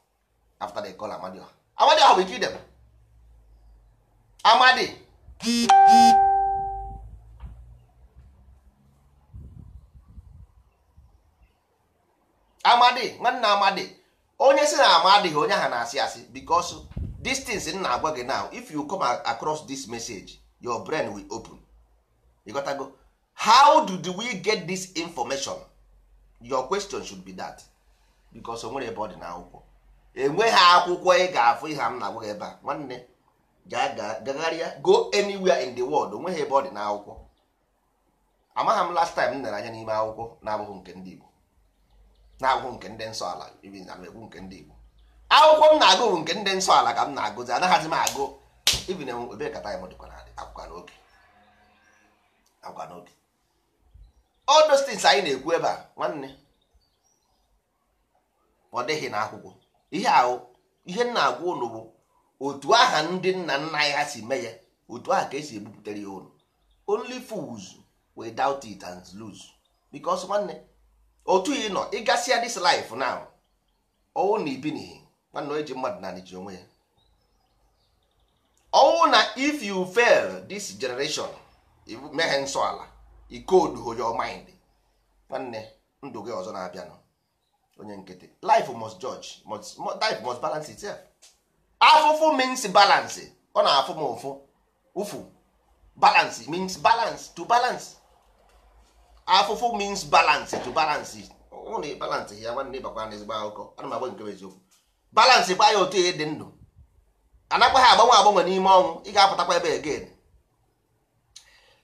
after they call amadioha amadioha will kill them amadi amadi nwanne amadi onye si na amadi onye ha na-asị asị because these things m na-agwa gị now if you come across this message your brain will open you gotta go how do we get this information your question should be that because o nwere ebe ọ dị n'akwụkwọ enweghị akwụkwọ ị ga-afụ ihe m na-agwa gị ebe a nwanne gagharịa go anywhere in the world onweghị ebe ọ dị n'akwụkwọ amaghị m last time m nere anya n'ime akwụkwọ na-abụghị nke ndị Igbo na-abụghị nke ndị nsọ ala ibi na-ekwu nke ndị Igbo akwụkwọ m na-agụ bụ nke ndị nsọ ala ka m na-agụzi anaghịzi m agụ ibin ebe kata ya m dịkwa n'adị akwụkwa n'oge akwụkwa n'oge all those things anyị na-ekwu ebe a nwanne ọ dịghị na akwụkwọ ihe ahụ ihe m na-agwa ụnụ bụ otu aha ndị nna nna ya si mee ya otu aha ka esi ebupụtara ya ụnụ only fools without it and lose because nwanne otu ị nọ ịgasịa this life now ọwụ na ibinihi nwanne ji mmadụ na ji onwe ya ọnwụ na if you fail this generation meghe nsọ ala ikodu your mind nwanne ndụ gị ọzọ na-abịanụ onye nkịtị life must judge must, life must balance itself afụfụ means balance ọ na-afụ m ụfụ ụfụ balance means balance to balance afụfụ means balance to balance ụna balance ya nwanne ịbakwa na ezigbo akụkọ ana m agba nke eziokwu balansị kwa ya otu ihe dị ndụ anakwa ha agbanwe agbanwe n'ime ọnwụ ị ga-apụtakwa ebe again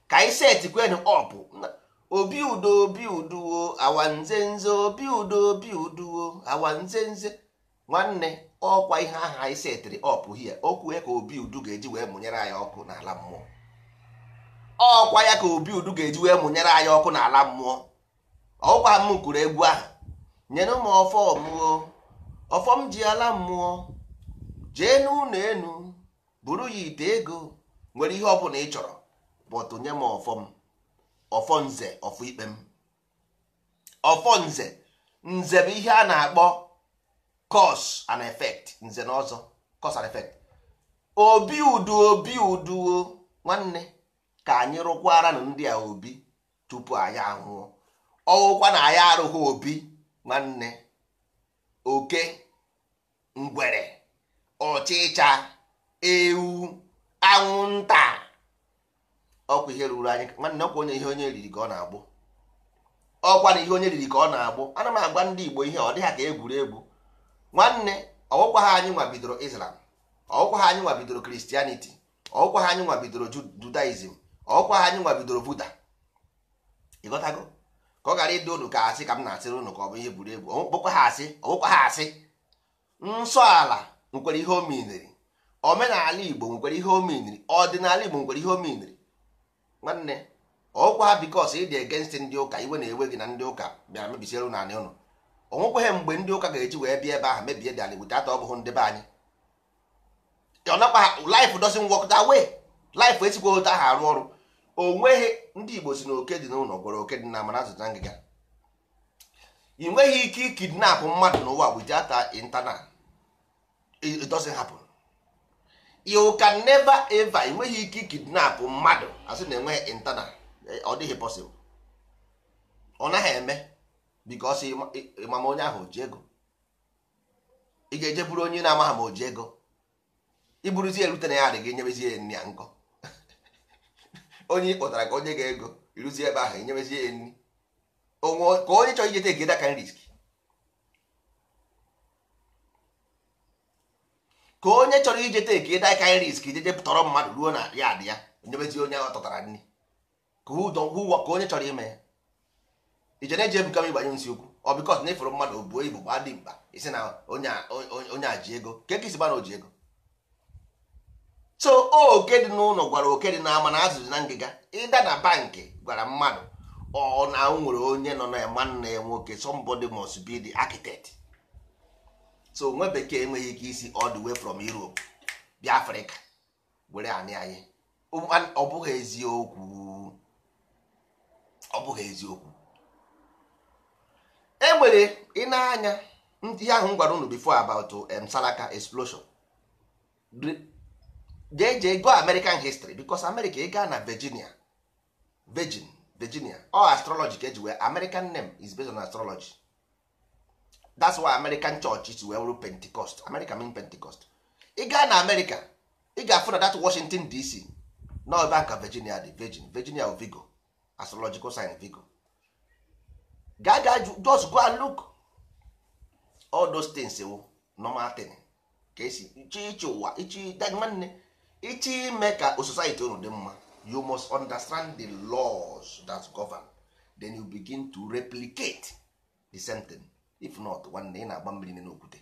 ka anyị seti kwen ọpụ obi udo obi uduwo awanze nze obi udo obi uduwo awanze nze nwanne ọkwa ihe ahụ anyị setịrị ọpụ hie okwue ka obi udu ga-eji wee mụnyere anyị ọkụ n'ala mmụọ ọkwa ya ka obi udu ga-eji wee mụnyere anyị ọkụ n'ala mmụọ ọkwa m kwuru egwu ahụ nyere ụmụ ọfọ ọmụo ọfọm ji ala mmụọ jee n'ụlọ enu buru ya ite ego nwere ihe ọbụla ị chọrọ bọtụ nye m ọfọm ọfọ nze ọfọ ikpe m ọfọ nze bụ ihe a na-akpọ cause and effect nze na ọzọ cause and effect obi udu obi uduo nwanne ka anyị rụkwara na ndị a obi tupu anyị ahụọ. ọwụkwa na anyị arụghị obi nwanne oke ngwere ọchịcha ewu anwụnta ọkwa ihe ruru anyị nwanne ọkwa onye ihe onye riri ka ọ na-agbụ ọkwa na ihe onye riri ka ọ na-agbụ ana m agba ndị Igbo ihe ọ dị ha ka egwuregwu nwanne ọwụkwa ha anyị nwa bidoro Islam ọwụkwa ha anyị nwa bidoro Christianity ọwụkwa ha anyị nwa bidoro Judaism ọwụkwa ha anyị nwa bidoro Buddha ịghọtago ka ọ gara ịdị unu ka asị ka m na-asịrị unu ka ọ bụ ihe egwuregwu ọwụkwa ha asị ọwụkwa ha asị nsọ ala nkwere ihe o omenala igbo nkwere ihe o ọdịnala igbo nkwere ihe omenri nwanne ọkwa ha bikos ịdị egenst ndị ụka iwe na-ewe gị na ndị ụka bịara mebisiere ụlọ ụnụ onwekweghị mgbe ndị ụka ga-eji wee bịa ebe ahụ mebie dị ala igbo tata ọgụhụ ndị be anyị life doesn't work that way life esikwa otu ahụ arụ ọrụ o nweghị ndị igbo si na oke dị n'ụlọ gwara oke dị na amara azụta ngịga ị nweghị ike ikidnapụ mmadụ n'ụwa bụ jata intanat it doesn't happen you can never ever enweghị ike kidnap mmadụ asị na enweghị internal eh, ọ dịghị possible ọ naghị eme because ịmama onye ahụ oji ego ị ga-eje bụrụ onye na-amaghị ma oji ego iburuzie erute na ya adịghị enyebezi ya nri ya nkọ onye kpọtara ka onye ga ego iruzie ebe ahụ nyebezie ya nri ka onye chọrọ ijete egeda ka risk ka onye chọrọ ije teki daikin risk jeje tọrọ mmadụ ruo na ya dị ya nyebezi onye ọ tọtara nri ka onye chọrọ ime ya ije na-eji ebuka m ịgbanye nsi okwu ọ bịkọs na ịfụrụ mmadụ obuo ibu gba dị mkpa isi na onye aji ego ka eke isiba na oji ego so oke dị n'ụlọ gwara oke dị n'ama na azụzụ na ngịga ịda na bankị gwara mmadụ ọ na nwere onye nọ na ya nwanne ya nwoke somebody must be the so nwa bekee enweghị ike isi all the way from Europe bịa Afrịka were anị anyị ọ bụghị eziokwu ọ bụghị eziokwu enwere ị na-anya ihe ahụ m gwara unu before about um, Salaka explosion jee jee go American history because America ị gaa na Virginia Virgin Virginia ọ astrology ka eji wee American name is based on astrology that's why american church is wee wụrụ pentecost america mean pentecost ị gaa na america ị ga-afụ na that washington dc na ebe ka virginia dị virgin virginia vigo astrological sign vigo gaa gaa just go and look all those things wụ normal thing ka esi iche iche ụwa iche nwanne iche ime ka society unu dị mma you must understand the laws that govern then you begin to replicate the same thing if not nwanne ị na-agba mmiri n'okwute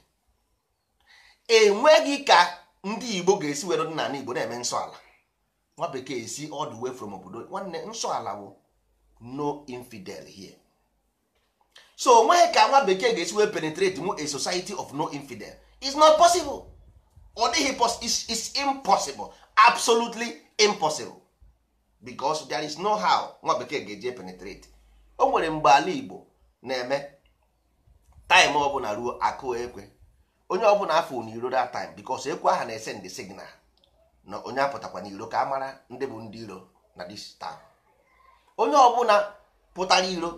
enweghị ka ndị igbo ga-esi were dị n'ala igbo na-eme nsọ ala nwa bekee si all the way from obodo nwanne nsọ ala bụ no infidel here so onweghị ka nwa bekee ga-esi wee penetrate mu a society of no infidel is not possible ọ dịghị is impossible absolutely impossible because there is no how nwa bekee ga-eji penetrate o nwere mgbe ala igbo na-eme taịm ọbụla ruo akụ ekwe onye ọbụla afọ n'iro da taịm bikos ekwe aha na-ese ndị signal na onye apụtakwa n'iro ka a mara ndị bụ ndị iro na dis taịm onye ọbụla pụtara iro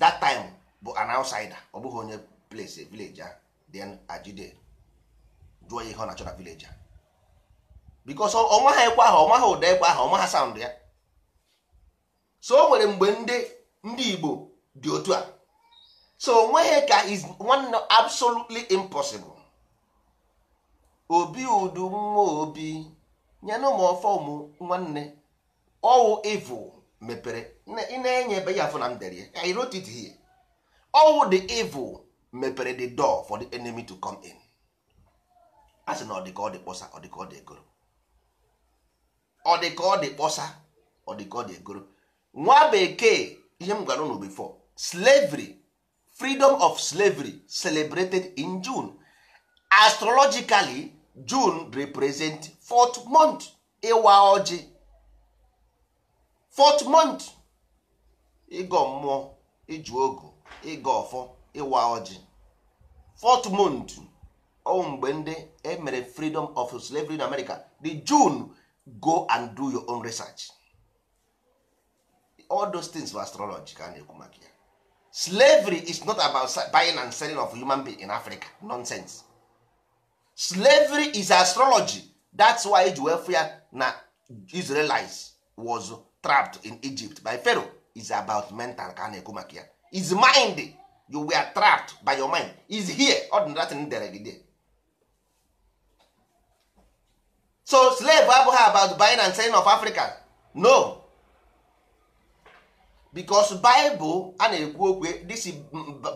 dat taịm bụ an outsider ọ bụghị onye place village then ajide jụọ ihe ọ na-achọ na village a bikos ọnwa ha ekwe aha ọnwa ha ụda ekwe aha ọnwa ha sound ya so o nwere mgbe ndị ndị Igbo dị otu a so onweghị ka is one absolutely impossible obi udu nwa obi nyenụ m ọfọmụ nwanne ọwụ evil mepere ị na-enye ebe ya afọ na mderie I wrote it here ọwụ the evil mepere the door for the enemy to come in a sị na ọ dị ka ọ dị kpọsa ọ dị ka ọ dị egoro ọ dị ka ọ dị kpọsa ọ dị ka ọ dị egoro nwa bekee ihe m gwara unu slavery freedom of slavery celebrated in june astrologically june represent fourth month ịwa ọjị fourth month ịgọ mmụọ ịjụ ogo ịgọ ọfọ ịwa ọjị fourth month ọ mgbe ndị emere freedom of slavery in america the june go and do your own research all those things were astrological ka a na-ekwu maka ya slavery is not about buying and selling of human being in africa nonsense slavery is astrology that's why eji na israelites was trapped in egypt by pharaoh is about mental ka a na-ekwu maka ya is mind you were trapped by your mind is here ordinary dere gị there so slave abụghị about buying and selling of africa no because bible a na-ekwu okwe dis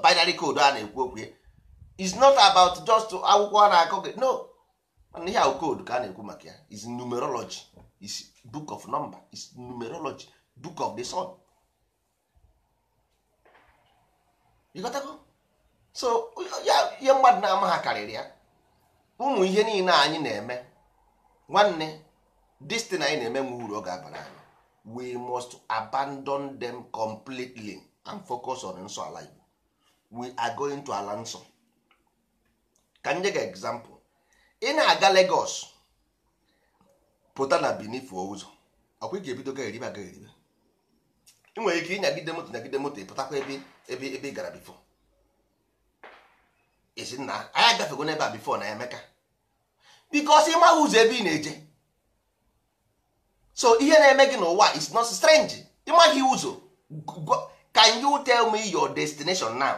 binary code a na-ekwu okwe is not about just akwụkwọ a na-akọ gị no ihe ahụ code ka a na-ekwu maka ya is numerology is book of number is numerology book of the sun ịghọtago so ya ihe mmadụ na-ama ha karịrị ya ụmụ ihe niile anyị na-eme nwanne destin anyị na-eme nwe uru ọ ga-abara anyị we must abandon them completely and focus on nso ala igbo we are going to ala nso ka m nye gị example ị na-aga Lagos pụta na Benin fuo ụzọ ọkwa ị ga-ebido ga eribe aga eribe ị nwere ike ịnyagide moto nyagide moto ịpụtakwa ebe ebe ebe ị gara bifo esi anyị agafego n'ebe a bifo na Emeka bikos ị maghị ụzọ ebe ị na-eje so ihe na-eme gị n'ụwa is not strange ịmaghị ụzọ can you tell me your destination now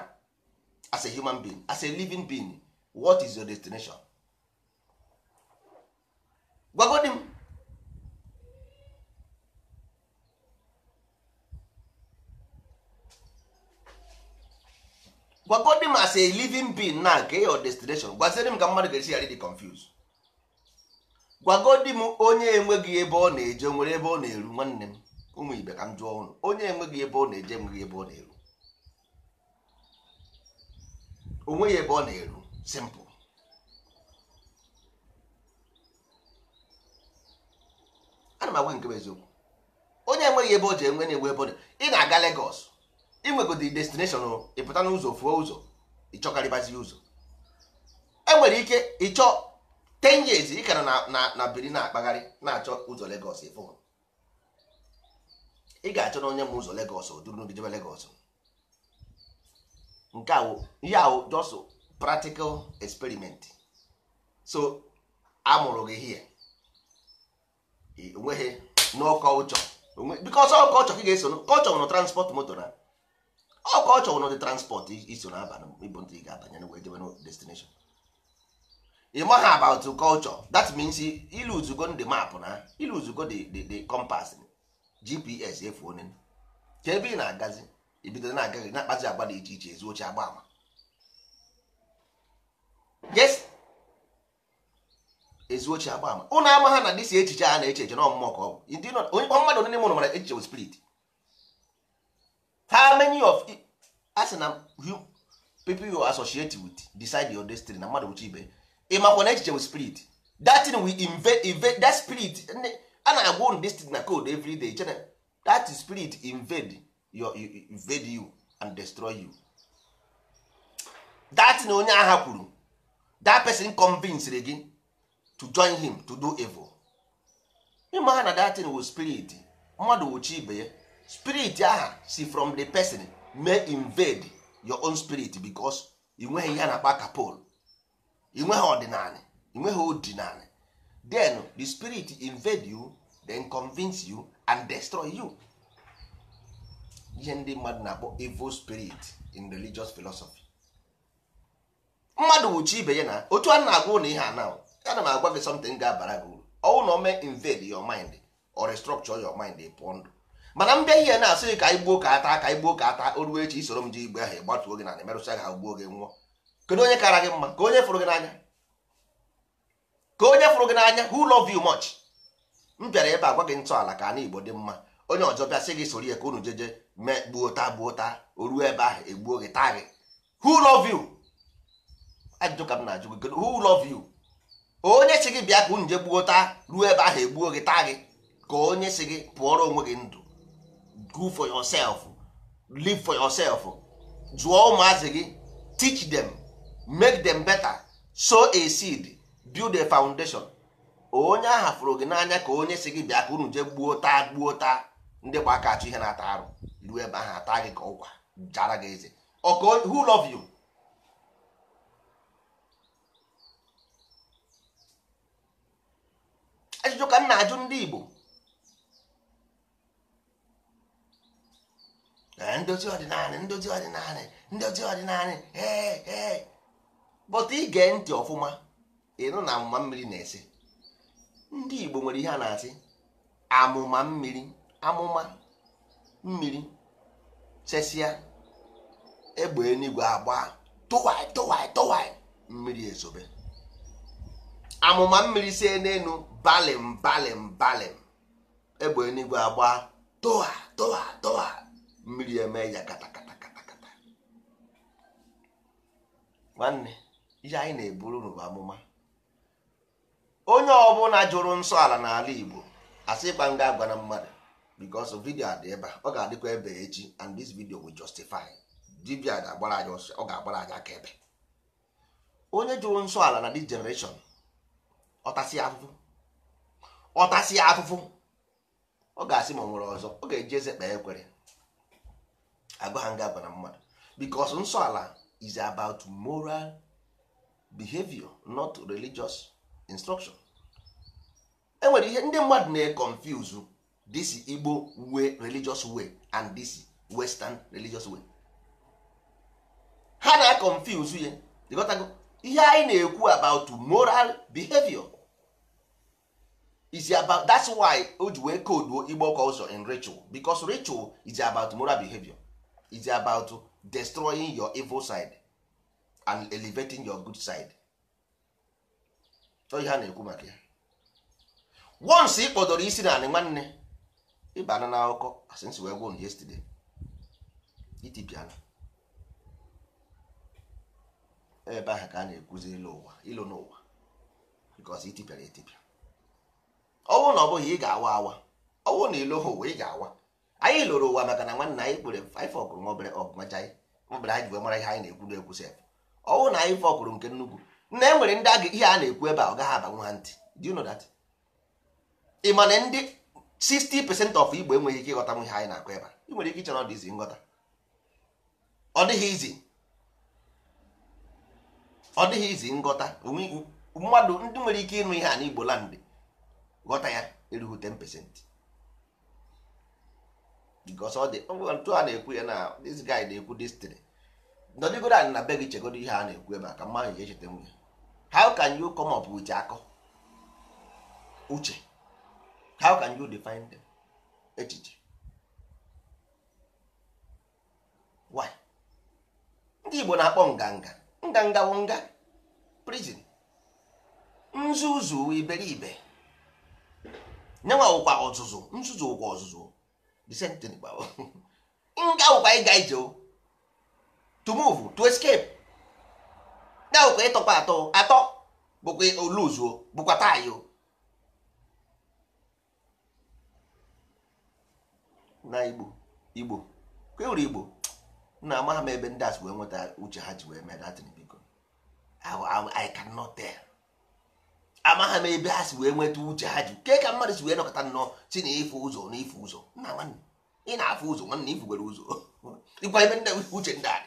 as a human being as a living being what is your destination gwagodi m gwagodi m as a living being now nke your destination gwaziri m ka mmadụ ga-esi ghara dị confused Gwago di m onye enweghị ebe ọ na-eje nwere ebe ọ na-eru nwanne m ụmụ ibe ka m jụọ ọnụ onye enweghị ebe ọ na-eje enweghị ebe ọ na-eru onweghị ebe ọ na-eru simpụl ana m agwa nke m eziokwu onye enweghị ebe ọ ji enwe na-enwe ebe ọ ị na-aga Legos inwegodi destination ịpụta n'ụzọ fuo ụzọ ịchọkarịbazi ụzọ enwere ike ịchọ ten years ị ka nọ na biri na-akpagharị na-achọ ụzọ Lagos ịfụ ị ga-achọ na onye ma ụzọ Lagos duru n'ogidebe Lagos nke awụ ihe awụ just practical experiment so amụrụ gị hie onweghị n'ọkọchọ because ọkọchọ ka ị ga-eso kọchọ nwụrụ transport moto na ọkọchọ nwụrụ dị transport iso na aba ndị ị ga-abanye na wee jebe destination ị maghị about culture that means iluzugo ndị map na iluzugo the compass gps efu onye ka ebe ị na-agazi ibido na-aga na-akpazi agba dị iche iche ezu oche agba ama yes ezu oche agba ama ụlọ ama ha na dị si echiche a na-eche eche na ọmụmụ ka ọ bụ mmadụ onye mụrụ mara echiche spirit how many of asị na people you associate with decide your destiny na mmadụ uche ibe ịmakwa na echiche with spirit that thing we invade that spirit a na-agwa unu na code every day chena that spirit invade your invade you and destroy you that onye agha kwuru that person convinced gị to join him to do evil ịma ha na that thing with spirit mmadụ wuchi ibe ya spirit aha si from the person may invade your own spirit because ị nweghị ihe na-akpa ka inweghị ọdịnala inweghị ọdịnala then the spirit invade you then convince you and destroy you ihe ndị mmadụ na-akpọ evil spirit in religious philosophy mmadụ wụchi ibe ya na otu a na-agwa ụlọ ihe ana ana m agwa gị something ga-abara gị uru ọwụ na ome invade your mind or restructure your mind pụọ ndụ mana mbịa ihe na-asị ka anyị gbuo ka ata ka anyị gbuo ka ata o echi isoro m ji igbe ahụ ịgbatuo gị na na emerụsịa ha gbuo gị nwụọ kedu onye kara gị mma ka onye fụrụ gị n'anya ka onye fụrụ gị n'anya who love you much m bịara ebe a gwa gị ntọala ka anyị igbo dị mma onye ọzọ bịa sị gị soro ya ka unu jeje mee gbuo taa gbuo taa o ruo ebe ahụ egbuo gị taa gị who love you ajụjụ ka m na-ajụ gị kedu who love you onye si gị bịa ka unu je gbuo taa ruo ebe ahụ egbuo gị taa gị ka onye si gị pụọrọ onwe gị ndụ go for yourself live for yourself jụọ ụmụazị gị teach them make them better sow a seed build a foundation onye ahụ fụrụ gị n'anya ka onye si gị bịa ka unu jee gbuo taa gbuo taa ndị gba aka achọ ihe na-ata arụ ruo ebe ahụ ata gị ka ụkwa jara gị eze who love you ajụjụ ka m na-ajụ ndị Igbo eh, ndozi ọdịnala ndozi ọdịnala ndozi ọdịnala ee eh, ee eh, ị ige ntị ọfụma ịnụ na amụma mmiri na-ese ndị Igbo nwere ihe a na-asị amụma mmiri amụma mmiri chesia egbe enigwe agba tụwai mmiri ezobe amụma mmiri si n'elu balim balim balim egbe enigwe agba tụwa tụwa tụwa mmiri eme ya katakata katakata ihe anyị na-eburu n'ụwa amụma onye ọbụla jụrụ nsọ ala n'ala Igbo asị ịkpa nga agwa na mmadụ because vidio dị ebe a ọ ga-adịkwa ebe echi and this video will justify dibia ga-agbara anyị ọsọ ọ ga-agbara anyị aka ebe onye jụrụ nsọ ala na this generation ọtasi afụfụ ọtasị afụfụ ọ ga-asị ma ọ nwere ọzọ ọ ga-eji eze kpee ekwere agwa ha nga agwa na mmadụ because nsọ ala is about moral behavior not religious instruction enwere ihe ndị mmadụ na-econfuse this Igbo way religious way and this western religious way ha na-confuse ya ịghọtago ihe anyị na-ekwu about moral behavior is about that's why o ji wee koduo Igbo culture in ritual because ritual is about moral behavior is about destroying your evil side and elevating your good side ọ ihe a na-ekwu maka ya once ị kpọdoro isi na anị nwanne ịbana na akụkọ since we won yesterday itipiana ebe ahụ ka a na-ekwuzi ilo ụwa ilo n'ụwa because itipịara etipịa ọnwụ na ọ bụghị ị ga-awa awa ọnwụ na ilo ụwa ị ga-awa anyị lụrụ ụwa maka na nwanne anyị kpere anyị fọgụrụ nwa obere ọgụ macha anyị anyị ji wee mara ihe anyị na-ekwu na-ekwu sef ọnwụ na anyị fọkwuru nke nnukwu na e nwere ndị aga ihe a na-ekwu ebe a ọ gaghị abanwu nwa ntị do you know ị ma na ndị 60 percent of Igbo enweghị ike ịghọta ihe anyị na-akụ ebe a ị nwere ike ịchọrọ na ọ dị izi nghọta ọ dịghị izi ọ dịghị izi nghọta mmadụ ndị nwere ike ịnụ ihe a n'Igbo land ghọta ya erughị 10 percent because ọ dị otu na-ekwu ya na this guy na-ekwu this thing nọdụgoro anyị na be gị chegodo ihe a na-ekwu ebe a ka mmadụ ji echeta nwunye how can you come up with akọ uche how can you define them echiche why ndị Igbo na-akpọ nganga nganga wụ nga prison nzuzu iberibe nyenwa ụkwa ọzụzụ nzuzu ụkwa ọzụzụ disentịn gbawo nga ụkwa ịga ije o to move to escape na bụkwa ịtọkwa atọ atọ bụkwa oluzuo bụkwa tayo na igbo igbo kwewuru igbo na ama m ebe ndị asị wee nweta uche ha ji wee mee datin biko i cannot tell ama ha ma ebe ha si wee nweta uche ha ji ke ka mmadụ si wee nọkọta nnọọ si na ife ụzọ na ife ụzọ nna nwanne ị na-afụ ụzọ nwanne ifugwere ụzọ ịkwa ebe ndị uche ndị a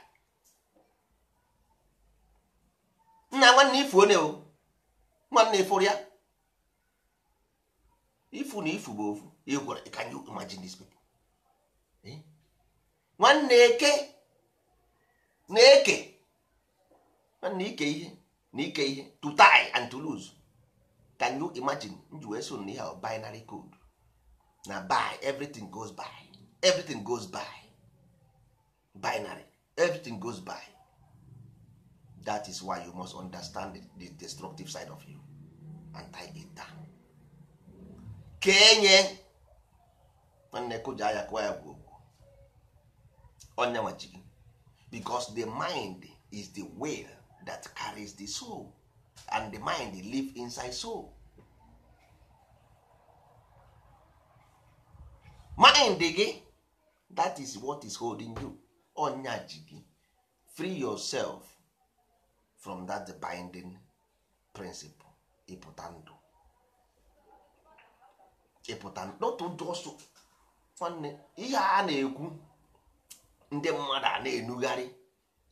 nna nwanne ifu onye o nwanne ịfụrụ ya ifu na ifu bụ ofu ịgwara can you imagine this people eh? nwanne eke na eke nwanne ike ihe na ike ihe to tie and to lose can you imagine nji wee so ihe binary code na buy everything goes by everything goes by binary everything goes by that is why you must understand the destructive side of you and tie it down. ka enye nwanne kụja anya kụwa ya onye nwachi because the mind is the will that carries the soul and the mind live inside soul mind gị that is what is holding you Onye ji free yourself from that binding principle ịpụta ndụ ịpụta not just nwanne ihe a na-ekwu ndị mmadụ a na-enugharị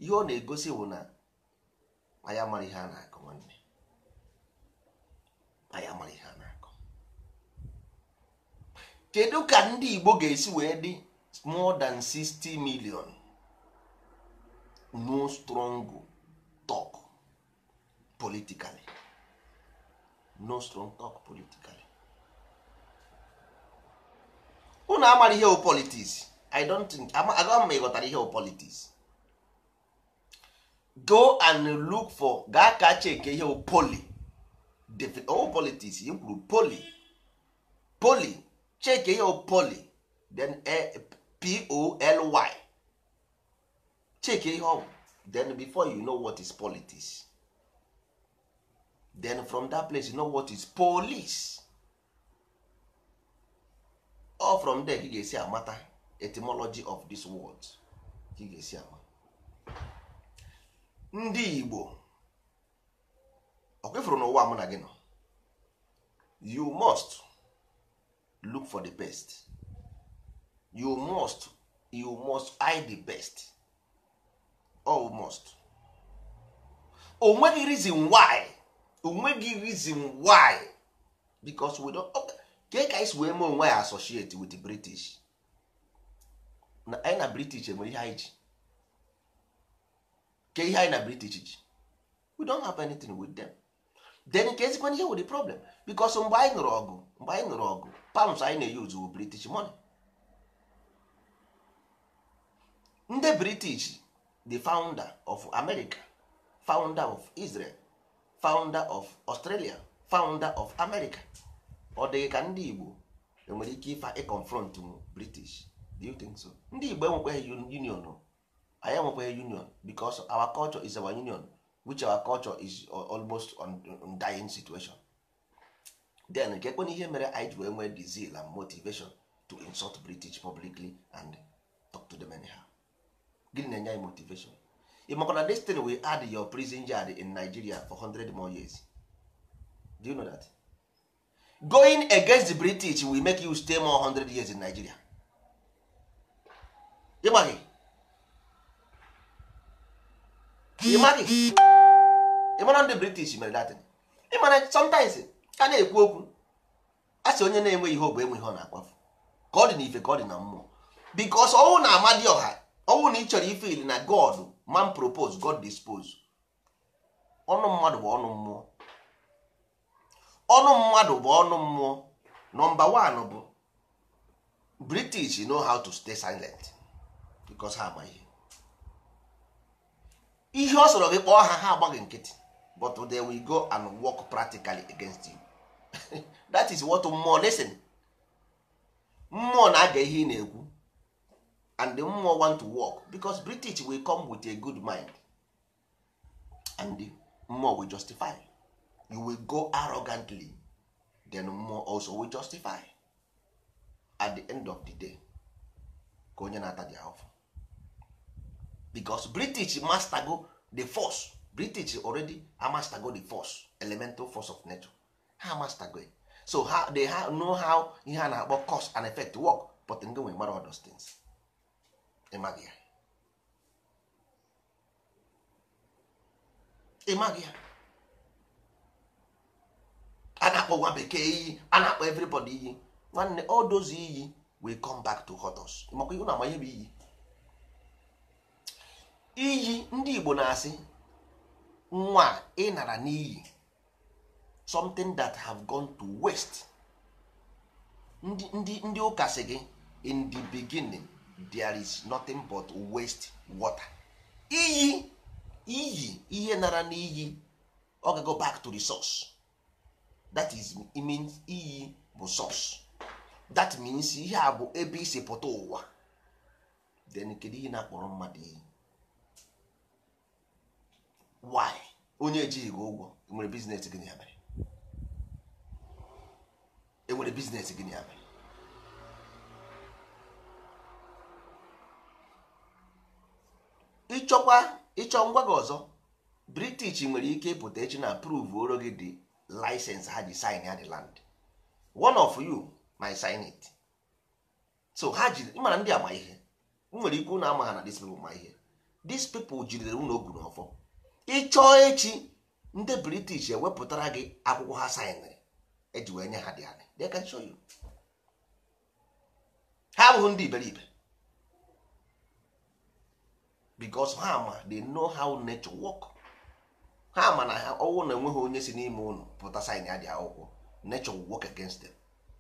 ihe ọ na-egosi bụ na anyị amaghị ihe a na akụ nwanne anyị amara ihe a na akụ kedu ka ndị Igbo ga-esi wee dị more than 60 million no strong talk politically no strong talk politically unu amara ihe o politics i don think aga m ịghọtara ihe o politics go and look for gaa ka cheke ihe poli o politics i kwuru poli poli cheke ihe poli then eh, poly cheke ihe ọ then before you know what is politics then from that place you know what is police all from there ị ga-esi amata etymology of this word you ga-esi ama ndị Igbo ọkwefụrụ n'ụwa mụ na gị nọ you must look for the best you must you must hide the best almost onweghị reason why onweghị reason why because we don't ka ka isi wee mee onwe ya associate with the british na anyị na british enwere ihe anyị ji ka ihe anyị na british ji we don't have anything with them then ka ezikwana ihe with the problem because mgbe anyị nụrụ ọgụ mgbe anyị nụrụ ọgụ palms anyị na-eyuzu british money ndị british the founder of America founder of Israel founder of Australia founder of America ọ dịghị ka ndị Igbo enwere ike ife ịconfront m British do you think so ndị Igbo enwekweghị union anyị enwekweghị union because our culture is our union which our culture is almost on dying situation then nke ihe mere anyị ji wee nwee and motivation to insult British publicly and talk to them anyhow gịnị na-enye anyị motivation ị makwa na destin we add your prison yard in Nigeria for 100 more years do you know that going against the British will make you stay more 100 years in Nigeria ịmaghị ịmaghị ịmara ndị British mere datin ịmara sometimes a na-ekwu okwu a sị onye na-enweghị ihe ọ bụ enweghị ọ na-akwafu ka ọ dị n'ife ka ọ dị na mmụọ because ọnwụ na Amadioha ọnwụ na ị chọrọ na god man propose god dispose ọnụ mmadụ bụ ọnụ mmụọ ọnụ mmadụ bụ ọnụ mmụọ nọmba one bụ british know how to stay silent because ha agba ihe ọ sọrọ gị kpọọ ha ha agbaghị nkịtị but they will go and work practically against you that is what mmụọ listen mmụọ na-aga ihe ị na-ekwu and the mmụọ want to work because british will come with a good mind and the mmụọ will justify you will go arrogantly then mmụọ also will justify at the end of the day ka onye na-ata dị ahụfụ because british mastago the force british already amastago the force elemental force of nature ha amastago so ha, they ha, know how ihe a na-akpọ cost and effect work but ndị nwere mara all those things ịmaghị ya a na-akpọ nwa bekee iyi a na-akpọ everybody iyi nwanne all those iyi we come back to hotos ihu na iyi iyi ndị Igbo na-asị nwa ị nara n'iyi something that have gone to waste ndị ụka sị gị in the beginning there is nothing but waste water iyi iyi ihe nara n'iyi ọ ga go back to the source that is means iyi bụ source that means ihe a bụ ebe isi pụta ụwa then kedu ihe na-akpọrọ mmadụ iyi why onye ejighị gị ụgwọ enwere biznes gịnị ya mere enwere biznes gịnị ya mere ịchọkwa ịchọ ngwa gị ọzọ british nwere ike ịpụta echi na prove oro gị dị license ha ji sign ya the land one of you my sign it so ha ji ịmara ndị ama ihe nwere ikwu na ama ha na dis people ma ihe dis people jidere unu ogu n'ọfọ ịchọọ echi ndị british ewepụtara gị akwụkwọ ha saịnịrị eji e wee nye ha dị anyị they can show you ha abụghị ndị iberibe because ha ma dey know how nature work ha ma na ọnwụ na enweghị onye si n'ime ụlọ pụta sin ya dị akwụkwọ nature will work against them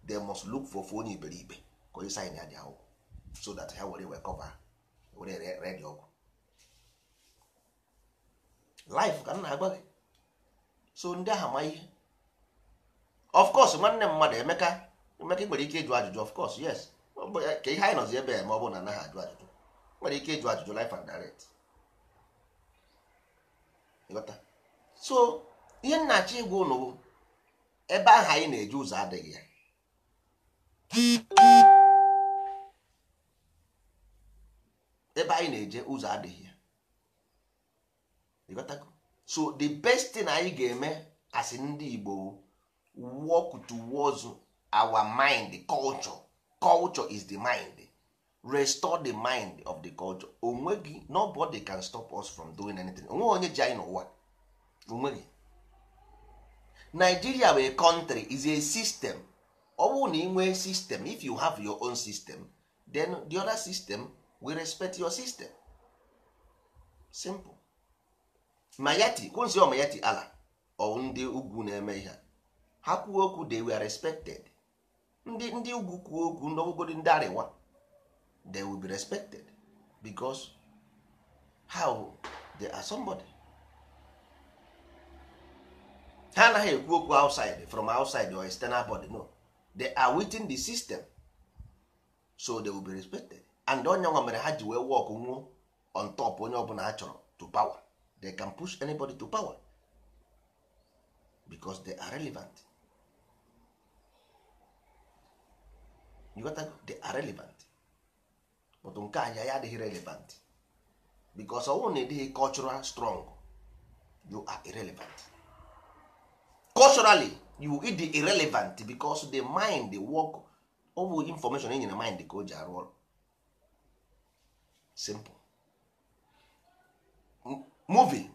they must look for onye iberibe ka onye sin ya dị akwụkwọ so that ha were wee cover were red ọgwụ life ka nna na-agwa gị so ndị aha ma ihe of course nwanne mmadụ emeka emeka nwere ike ịjụ ajụjụ of course yes ka ihe anyị nọzi ebe a ma ọ bụ na anaghị ajụ ajụjụ nwere ike ịjụ ajụjụ life and direct so ihe nnachi igwe ụnụ bụ ebe ahụ anyị na-eji ụzọ adịghị ya ebe anyị na-eje ụzọ adịghị ya so the best thing anyị ga-eme as ndị Igbo work towards our mind culture culture is the mind restore the mind of the culture onwe gị nobody can stop us from doing anything onwe onye ji anyị n'ụwa onwe gị Nigeria bụ a country is a system ọ bụrụ na ị nwee system if you have your own system then the other system will respect your system simple mayati kwụnzi mayati ala ọwụ ndị ugwu na-eme ihe ha kwuo okwu they were respected ndị ndị ugwu kwuo okwu n'ọbụgodi ndị arịwa they will be respected because how they are somebody ha anaghị ekwu okwu outside from outside or external body no they are within the system so they will be respected and onye nwa mere ha ji wee nwụọ on top onye ọbụla ha chọrọ to power they can push anybody to power because they are relevant you got they are relevant but nke anya ya adịghị relevant because ọnwụ na ịdịghị cultural strong you are irrelevant culturally you ịdị irrelevant because the mind the work ọ information enyi na mind ka o ji arụ ọrụ simple movie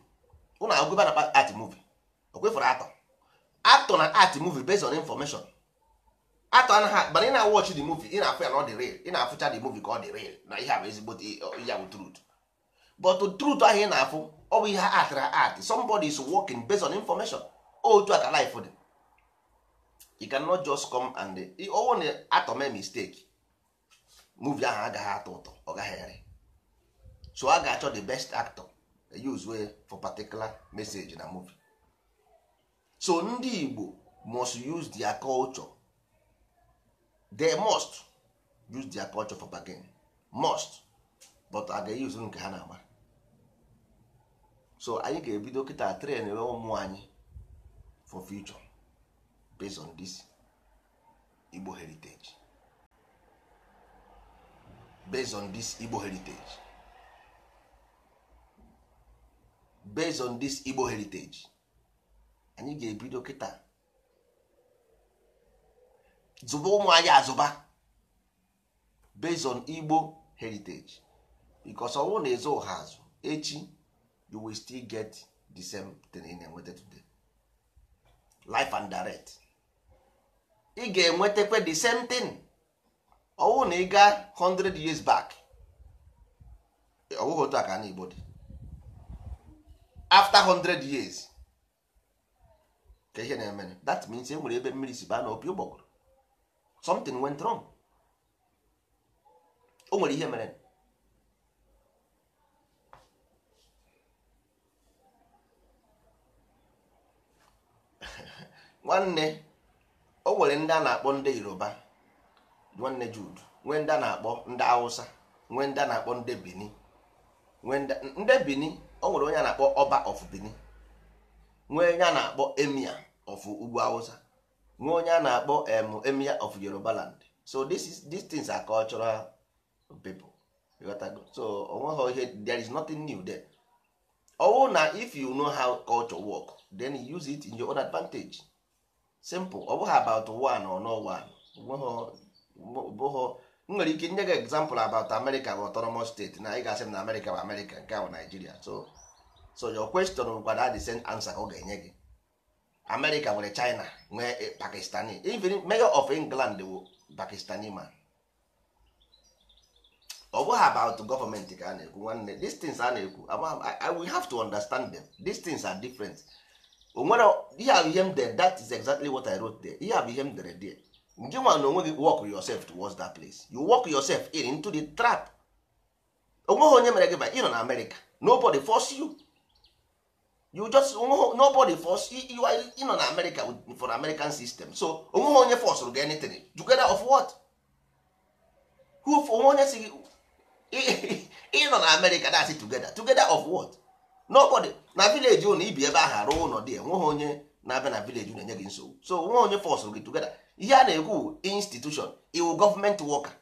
ụnụ agwụba na art movie o kwefere atọ atọ na art movie based on information atọ anaghị mana ị na-awọchị the movie ị na-afụ ya na ọ dị real ị na-afụcha the movie ka ọ dị real na ihe a bụ ezigbo uh, ya bụ truth but truth ahụ ị na-afụ ọ bụ ihe atara art somebody is working based on information otu a ka life dị you cannot just come and owo na atọ mee mistake movie ahụ agaghị atọ ụtọ ọ gaghị ere so a ga-achọ the best actor use way for particular message na movie so ndị Igbo must use their culture they must use their culture for bargain must but a ga-use nke ha na-ama so anyị ga-ebido kịta tren we ụmụ anyị for future based on this Igbo heritage based on this Igbo heritage based on this Igbo heritage anyị ga-ebido kịta zụba ụmụ anyị azụba based on Igbo heritage because ọnwụ na-ezo ụha azụ echi you will still get the same thing in enweta today life and direct ị ga-enwetakwa the same thing ọnwụ na ị gaa 100 years back ọwụghị otu aka na Igbo dị after 100 years ka ihe na-eme that means e nwere ebe mmiri si baa na opi ụgbọgụrụ something went wrong o nwere ihe mere nwanne o nwere ndị a na-akpọ ndị yoruba nwanne jud nwee ndị a na-akpọ ndị awụsa nwee ndị a na-akpọ ndị bini nwee ndị bini o nwere onye a na-akpọ ọba of bini nwee onye a na-akpọ emia of ugwu awụsa. nwee onye a na-akpọ emir of Yoruba land so this is these things are cultural people so onweghị ihe there is nothing new there ọwụ na if you know how culture work then you use it in your own advantage simple ọ bụghị about one or no one bụghọ m nwere ike nye gị example about America bụ autonomous state na ị ga-asị m na America bụ America nke bụ Nigeria so so your question bụkwa the same answer ọ ga-enye gị America nwere China nwee eh, Pakistani even mayor of England wụ Pakistani man ọ bụghị about gọọmenti ka a na-ekwu nwanne these things a na-ekwu we have to understand them these things are different onwere ihe abụ ihe m dere that is exactly what I wrote there ihe abụ ihe m dere there nje nwa na onwe gị work yourself towards that place you work yourself in into the trap onweghị onye mere gị ba ị nọ na America nobody force you you just nobody force you are you know na america for american system so onweghị onye force gị anything together of what who for onye si ị na america that's it together together of what nobody na village unu ibi ebe ahụ arụ ụlọ dị enweghị onye na-abịa na village unu enye gị nsogbu so onweghị onye force gị together ihe a na-ekwu institution iwu government worker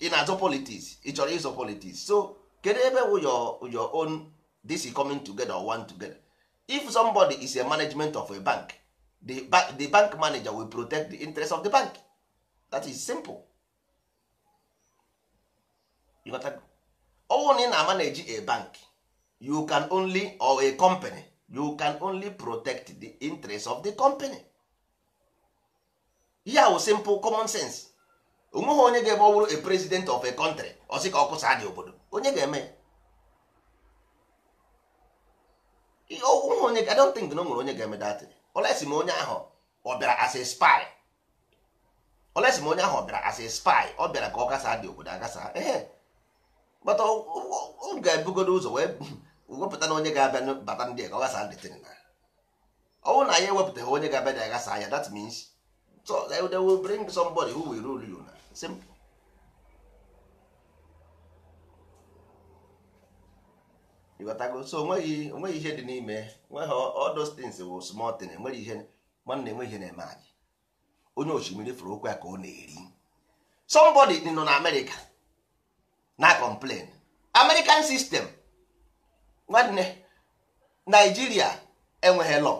ị na-azụ politics ị chọrọ ịzọ politics so kedu ebe wụ your your own this is coming together or one together if somebody is a management of a bank the, the bank manager will protect the interest of the bank that is simple you got ọwụ na ị na-ama a bank you can only or a company you can only protect the interest of the company ihe simple common sense onweghị onye ga-ebe ọ bụrụ a president of a country ọ sị ka ọ dị obodo onye ga-eme ya ọwụwa onye I don't think na ọ nwere onye ga-eme datị olesi ma onye ahụ ọ bịara as a spy olesi ma onye ahụ ọ bịara as a spy ọ bịara ka ọ gasa dị obodo agasa ehe kpata ọ ga-ebugodo ụzọ wee wepụta na onye ga-abịa bata ndị ka ọ gasa dịtịrị na ọnwụ na ya ewepụtaghị onye ga-abịa dị agasa ya that means so they will bring somebody who will rule you na simple ịghọtago so onweghị onweghị ihe dị n'ime nweghị odostins bụ smọtin enweghị ihe nwanne enweghị ihe na-eme anyị onye osimiri fụrụ okwu ya ka ọ na-eri somebody nọ na amerịka na complain american system nwanne naijiria enweghị lọ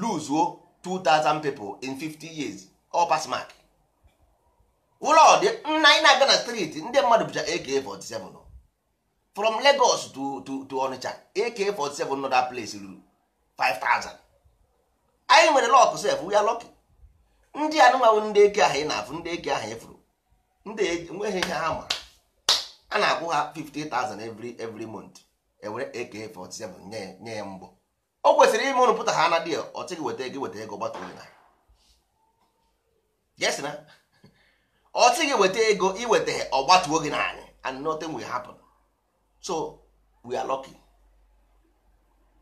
luzuo 2000 people in 50 years ọ pass mark ụlọ dị nna anyị na-aga na ndị mmadụ bụcha AK47 from Lagos to to to Onitsha AK47 nọ place ruru 5000 anyị nwere lọk sef we lọkị ndị anụmanụ ndị eke ahụ ị na-afụ ndị eke ahụ efuru ndị enweghị ihe ha ma a na-akwụ ha 50,000 every every month ewere AK47 nye ya mbụ o kwesịrị ime ụrụpụta ha na dia ọ weta ego weta ego gbata na yes na weta ego iweta ọgbatuo gị na anyị and nothing will happen so we are lucky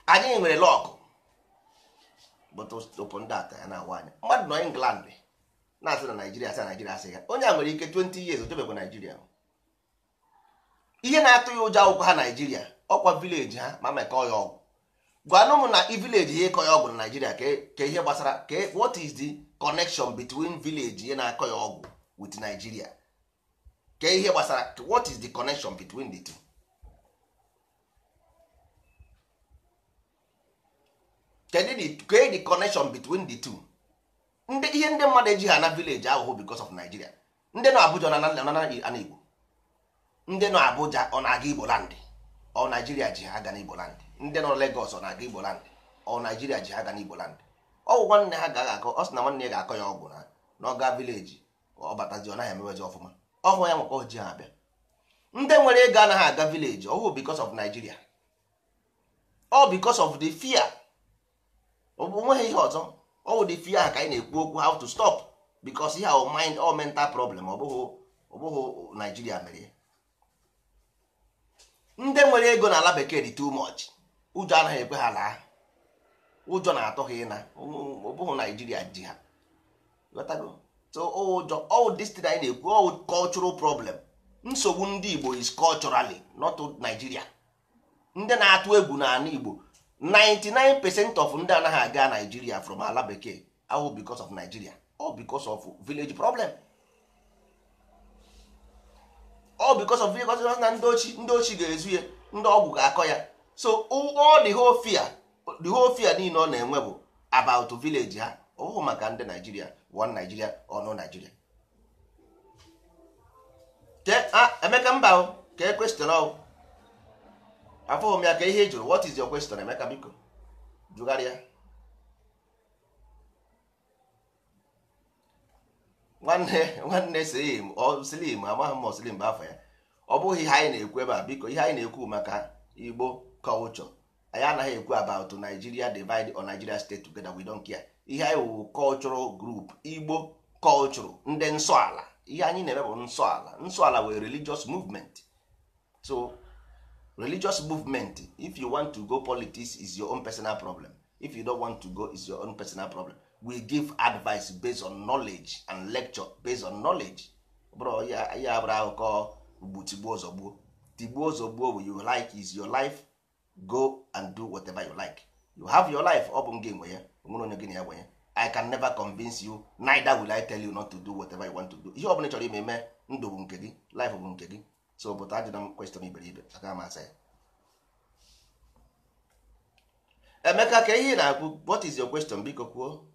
anyị nwere lọkụ but upon that ya na-awa anya mmadụ nọ England na-asị na Naijiria asị na Naijiria asị ya onye a nwere ike 20 years otebekwa Naijiria ihe na-atụ ya ụjọ akwụkwọ ha Naijiria ọkwa vileji ha ma mekọọ ya ọgwụ gwanụ m na vileji ihe ịkọ ya ọgwụ na Naijiria e, ka ihe gbasara ka e, what is the connection between village ihe na-akọ ya ọgwụ with Nigeria ka ihe gbasara what is the connection between the two kedu kee the connection between the two ndị ihe ndị mmadụ eji ha na village ahụhụ because of Nigeria ndị nọ Abuja ana Igbo ndị nọ Abuja ọ na-aga Igbo land ọ Nigeria ji ha aga n'Igbo land ndị nọ Lagos ọ na-aga Igbo land ọ Nigeria ji ha aga n'Igbo land ọgwụ nwanne ha gaghị akọ ọ sị na nwanne ya ga-akọ ya ọgwụ na n'ọga vileji ọ batazi ọ naghị emewezi ọfụma ọhụ ya nwekọ ji ha abịa ndị nwere ego anaghị aga vileji ọhụ because of Nigeria ọ because of the fear onweghị ihe ọzọ ọwụ dị fi ya ka anyị na-ekwu okwu how to stop because ihe ahụ mind all mental problem ọ bụghị ọ Naijiria mere ndị nwere ego na ala bekee dị too much ụjọ anaghị ekwe ha laa ụjọ na-atọ ha ịna ọ bụghị Naijiria ji ha so ụjọ ọwụ destin anyị na-ekwu ọwụ cultural problem nsogbu ndị Igbo is culturally not Nigeria ndị na-atụ egwu n'ala Igbo 99% of ndị anaghị aga Nigeria from ala bekee ahụ because of Nigeria all because of village problem all because of village problem na ndị ochi ndị ochi ga-ezu ya ndị ọgwụ ga-akọ ya so all the whole fear whole fear niile ọ na-enwe bụ about village ha ọ maka ndị Nigeria one Nigeria or no Nigeria ah, Emeka mba ka e kwestịrị afọghị m ya ka ihe ị jụrụ what is your question Emeka biko jụgharịa nwanne nwanne slim slim amaghị m slim bụ afọ ya ọ bụghị ihe anyị na-ekwu ebe a biko ihe anyị na-ekwu maka Igbo kọlchọ anyị anaghị ekwu about Nigeria divide or Nigeria state together we don't care ihe anyị wụ cultural group Igbo culture ndị nsọala ihe anyị na-eme bụ nsọala nsọala wee religious movement so religious movement if you want to go politics is your own personal problem if you don't want to go is your own personal problem we give advice based on knowledge and lecture based on knowledge bro ya ya abụrụ akụkọ ugbu tigbuo ozogbuo tigbuo ozogbuo you like is your life go and do whatever you like you have your life ọ bụ m gị nwe ya nwere onye gị na ya nwe ya i can never convince you neither will i tell you not to do whatever you want to do ihe ọ bụla ị chọrọ ime ndụ bụ nke gị life bụ nke gị so pụta ajụna m kweston iberibe aka m asa ya emeka ka ihe na-akwụ what is your question biko kwuo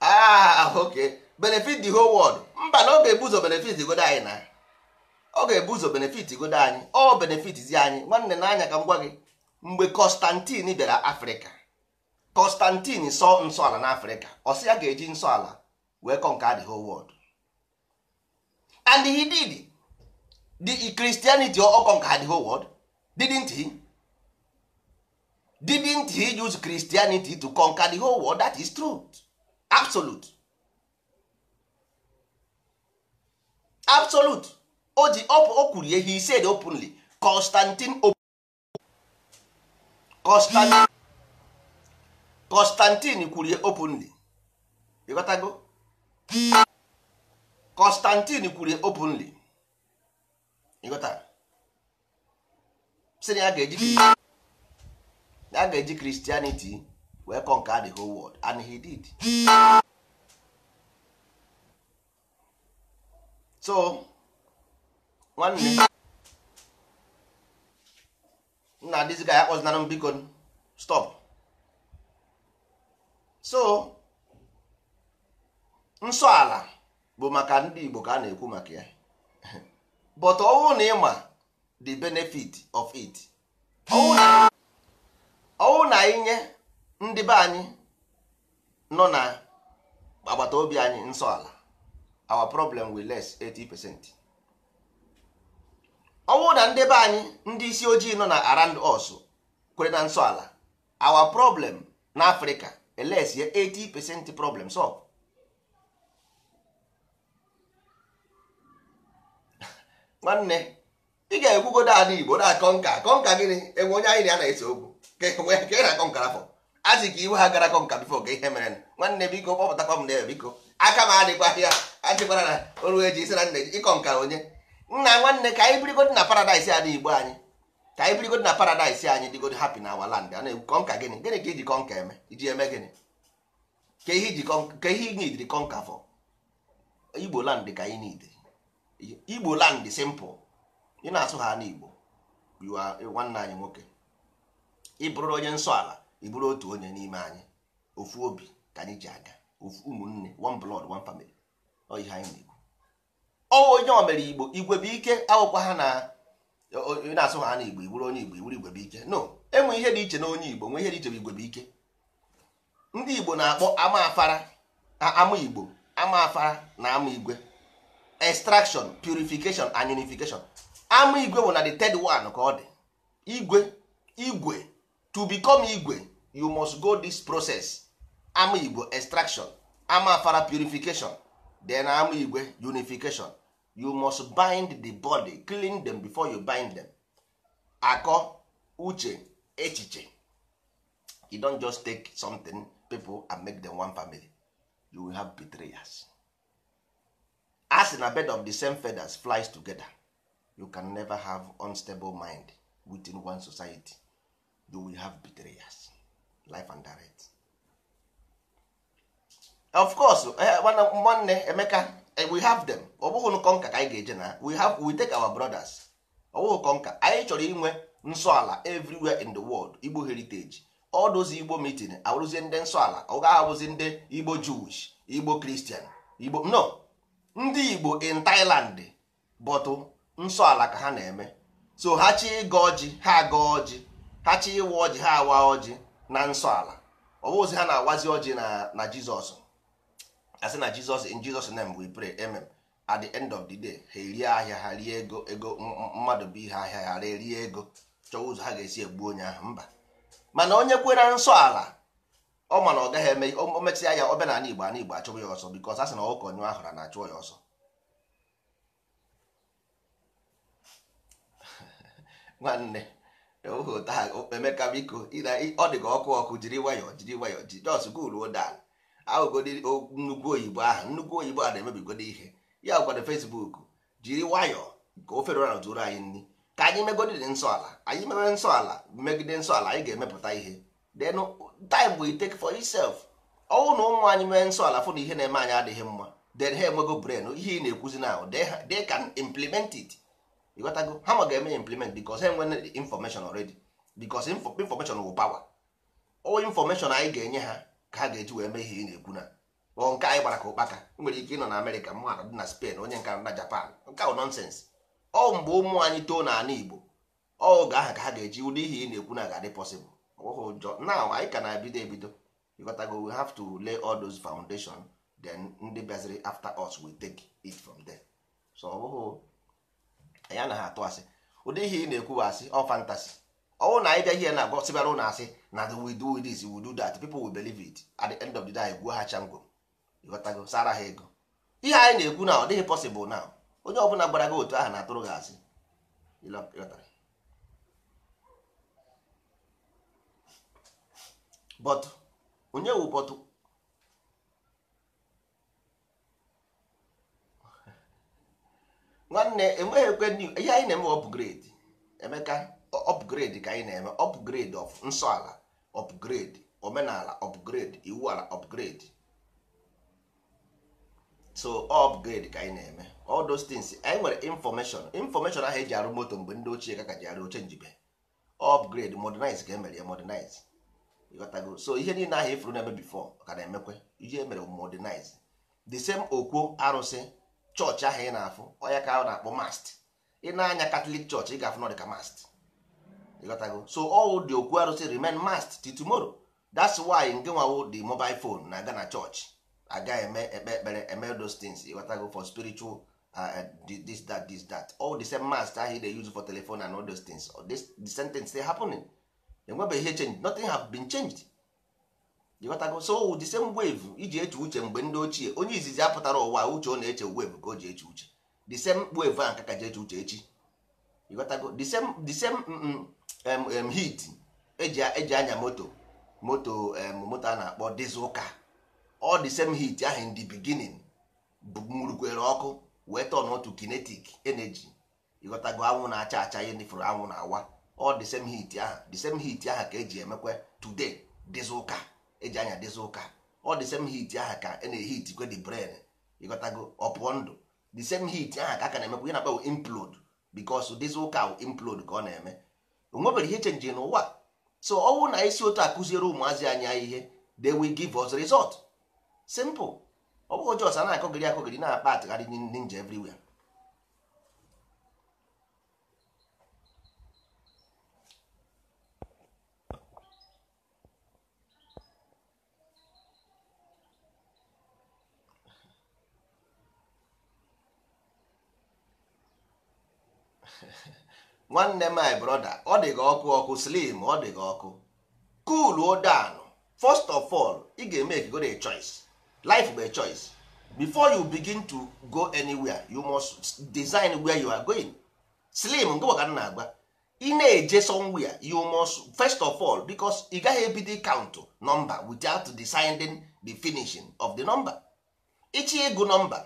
ah ok benefit the whole world mba na ọ ga-ebu benefit godo anyị na ọ ga ebuzo ụzọ benefit godo anyị ọ benefit zi anyị nwanne na ka m gwa gị mgbe Constantine bịara Afrịka Constantine sọ nsọala n'Africa ọ sị ya ga-eji nsọala wee conquer the whole world and he did the Christianity or conquer the whole world didn't he didn't he use Christianity to conquer the whole world that is true absolute absolute o ji ihe he said openly Constantine Constantine Constantine kwuru openly ịghọtago Constantine kwuru openly ịghọta sị na ya ga-eji ya ga-eji Christianity wee conquer the whole world and he did so nwanne nna dịzika ya kpọzinara m biko stop so nsọ ala bụ maka ndị Igbo ka a na-ekwu maka ya but ọwụ na ịma the benefit of it ọwụ na inye nye ndị be anyị nọ na agbata obi anyị nsọ ala our problem will less 80% ọwụ na ndị be anyị ndị isi ojii nọ na around us kwere na nsọ ala our problem na Africa eles ya 80 percent problem solve nwanne ị ga-ekwugodo ala igbo na akọnka kọnka gịnị enwe onye anyị na ya na-ese okwu ka ị na-akọnkara fọ azị ka iwe ha gara kọnka bifo ka ihe mere nwanne biko kpọpụtakwa m na biko aka m adịkwa ya adịkwara na oru eji isi na nna ịkọ nka onye nna nwanne ka anyị birigodo na paradaịs ala igbo anyị ka anyị birigod na paradaịs anyị dịgod hapi na our land kọnka gịnị gịnị ka iji kọnka eme iji eme gịnị ka ihe ị nidiri kọnka fọ igbo land ka anyị niile. igbo land simple ị na-asụ ha n'igbo nwanne anyị nwoke ị bụrụ onye nsọ ala ị bụrụ otu onye n'ime anyị ofu obi ka anyị ji aga ofu ụmụnne one blood one family ọ ihe anyị na-ekwu onye o mere igbo igwe bụ ike awụkwa ha na onye na-asụ ha na igbo iwuru onye igbo iwuru igwe bụ no enwe ihe dị iche na onye igbo nwee ihe dị iche bụ igwe bụ ike ndị igbo na-akpọ ama afara ama igbo ama afara na ama igwe extraction purification and unification ama igwe bụ na the third one ka ọ dị igwe igwe to become igwe you must go this process ama igbo extraction ama afara purification then ama igwe unification you must bind the body clean them before you bind them akọ uche echiche you don just take something pipo and make them one family you will have betrayers as in a bed of the same feathers flies together you can never have unstable mind within one society you will have betrayers life and direct of course nwanne eh, eh, emeka we have them ọ bụghị kọnka ka anyị ga-eje na we have we take our brothers ọ bụghị kọnka anyị chọrọ inwe nsọ ala everywhere in the world igbo heritage ọ dozi igbo meeting abụrụzie ndị nsọ ala ọ gaghị abụzi ndị igbo jewish igbo kristian igbo no ndị igbo in thailand bọtụ nsọ ala ka ha na-eme so ha chi ịga ọjị ha aga ọjị ha chi ịwa ọjị ha awa ọjị na nsọ ala ọ bụzi ha na-awazi ọjị na jizọs asị na jizọs in jizọs name we pray amen at the end of the day ha erie ahịa ha rie ego ego mmadụ bụ ihe ahịa ha erie ego chọọ ụzọ ha ga-esi egbu onye ahụ mba mana onye kwere nsọ ala ọ ma na ọ gaghị eme o ya ọbịa na igbo ana igbo achụbụ ya ọsọ bikọs asị na ọkụ ọnyụ ahụra na-achụ ya ọsọ nwanne Emeka biko ọ dị ka ọkụ ọkụ jiri nwayọọ jiri nwayọọ ji jos goluo dal aghụgodi nnukwu oyibo ahụ nnukwu oyibo a na-emebigodo ihe ya gwara Facebook jiri nwayọọ ka o ferora zuru anyị nri ka anyị megodiri nsọ ala anyị mewe nsọ ala megide nsọ ala anyị ga-emepụta ihe then time we take for itself ọnwụ na ụmụ anyị mee nsọ ala fụ na ihe na-eme anyị adịghị mma then ha enwego brain ihe ị na-ekwuzi na they can implement it ịghọtago ha ma ga-eme implement because ha enwe information already because information wụ power o information anyị ga-enye ha ka ha ga-eji wee mee ihe ị na-ekwu na ọ nke anyị gbara ka ụkpaka nwere ike ịnọ na amerịka mmadụ dị na spain onye nka na japan nke ahụ nọnsens ọ mgbe ụmụ anyị too n'ala igbo oge ahụ ka ha ga-eji ụdị ihe ị na-ekwu na ga-adị pọsịbụl na anyị ka na-ebido ebido ịghọtago we have to lay all those foundation then ndị bịaziri after us we take it from there so ọ bụghị anyị anaghị atụ asị ụdị ihe ị na-ekwu bụ asị ọ fantasy Ọwụ na anyị bịa ihe na agwọ sịbara ụlọ asị na we do this we do that people will believe it at the end of the day gwuo ha changwo ịghọtago sara ha ego ihe anyị na-ekwu na ọ dịghị possible na onye ọbụla gbara gị otu ahụ na-atụrụ gị asị but onye wu bọtụ nwanne enweghị ekwe ihe anyị na-eme ọ bụ grade Emeka upgrade ka anyị na-eme upgrade of nsọ ala omenala upgrade iwu ala upgrade so upgrade ka anyị na-eme all those things anyị nwere information information ahụ eji arụ moto mgbe ndị ochie ka ka ji arụ oche njibe upgrade modernize ka emere ya modernize so ihe niile ahụ ifuru e na-eme ka na-emekwe ihe emere modernize the same okwo arụsị chọọchị ahụ ị na-afụ ọya ka ahụ na-akpọ mast ị na-anya ị ga-afụ mast ịghọtago so all the okwu arụsị remain mast till tomorrow that's why nke nwawo the mobile phone na-aga na church aga eme ekpe ekpere eme those things ịghọtago for spiritual uh, uh this that this that all the same mast ahụ dey use for telephone and all those things all this, the sentence dey happening enwebeghị ihe change nothing have been changed ịghọtago so the same wave iji eche uche mgbe ndị ochie onye izizi apụtara ụwa uche ọ na-eche wave ka o ji eche uche the same wave ahụ ka ka ji eche uche echi ịghọtago the same the same mm, mm, heat eji e anya moto moto moto a na-akpọ dizụka ọ dị same heat ahụ ndị the beginning murukwere ọkụ wee tọn otu kinetic energy ịghọtago anwụ na-acha acha ihe nifụrụ anwụ na-awa ọ dị same heat ahụ same heat ahụ ka eji emekwe today eji e anya dizụka ọ dị same heat ahụ ka e na-ehit kwe ịghọtago ọpụọ ndụ the same heat ka a ka na-emekwa ihe na-akpa implode because dizụka implode ka ọ na-eme o nwebere ihe chenji n'ụwa so ọnwụ na isi otu akụziere ụmụazị anya ihe they will give us result simple ọ bụghị jos a na-akọgiri akọgiri na akpa atụgharị nje everywhere nwanne my brother ọ dị gị ọkụ ọkụ slim ọ dị gị ọkụ cool down first of all ị ga go dey choice life bụ a choice before you begin to go anywhere you must design where you are going slim nke maka na-agba ị na-eje somewhere you must first of all becos ị gaghị ebido count nọmba without deciding the finishing of the number ichi ịgụ number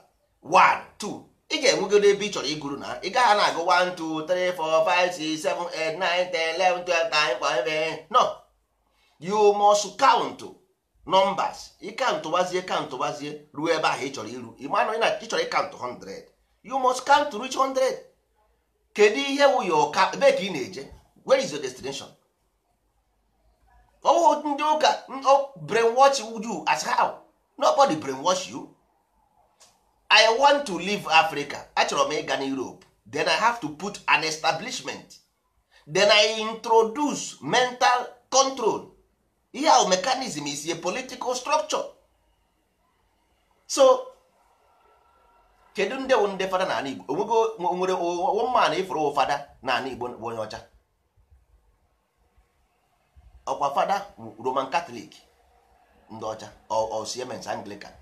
1 2 ị ga-enwegoro ebe ị chọrọ iguru na ị gaghị na-agụ 1 2 3 4 5 6 7 8 9 10 11 12 time ebe no you must count numbers ịkantụ gbazie kantụ gbazie ruo ebe ahụ ị chọrọ iru ịmanụ na ị chọrọ ịkantụ 100 you must count to reach 100 kedu ihe wụ ya ọka ebe ka ị na-eje where is your destination ọwụ ndị ụka brainwash you as how nobody brainwash you i want to leave africa achọrọ m ịga na europe then i have to put an establishment then i introduce mental control ihe ahụ mekanism is a political structure so kedu nde nde ndị fada n'ala igbo onwego nwere woman ịfụrụ fada n'ala igbo bụ onye ọcha ọkwa fada roman catholic ndị ọcha or siemens anglican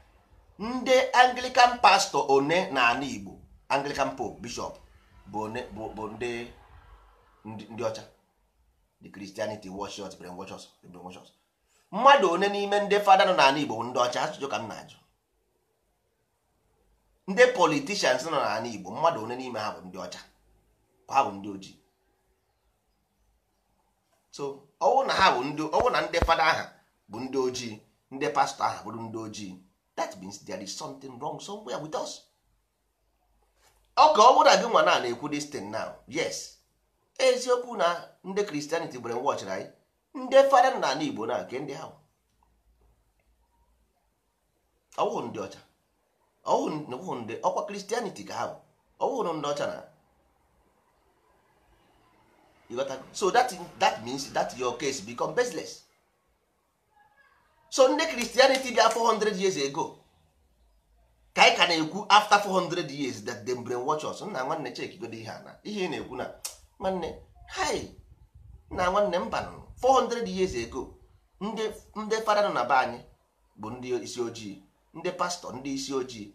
ndị anglican pastọ one na ana igbo anglican pope bishop bụ ndị ndị ọcha the christianity worship brainwashers brainwashers mmadụ one n'ime ndị fada nọ n'ala igbo ndị ọcha ajụjụ ka m na-ajụ ndị politicians nọ n'ala igbo mmadụ one n'ime ha bụ ndị ọcha ha bụ ndị ojii so ọwụ na ha bụ ndị ọwụ na ndị fada aha bụ ndị ojii ndị pastọ aha bụrụ ndị ojii that means there is something wrong somewhere with us ọ ka ọ na gị nwa na na-ekwu this thing now yes eziokwu na ndị kristianity bere watch anyị ndị fada na ala igbo na nke ndị ahụ ọwụ ndị ọcha ọwụ ndị ọkwa kristianity ka ha bụ ọwụ ndị ọcha na so that, that means that your case become baseless so ndị kristianity bịa 400 years ago ka anyị ka na-ekwu after 400 years that they brain watch us nna nwanne chekigodo ihe ana ihe ị na-ekwu na nwanne hi na nwanne mba 400 years ago ndị ndị fada nọ na be anyị bụ ndị isi ojii ndị pastọ ndị isi ojii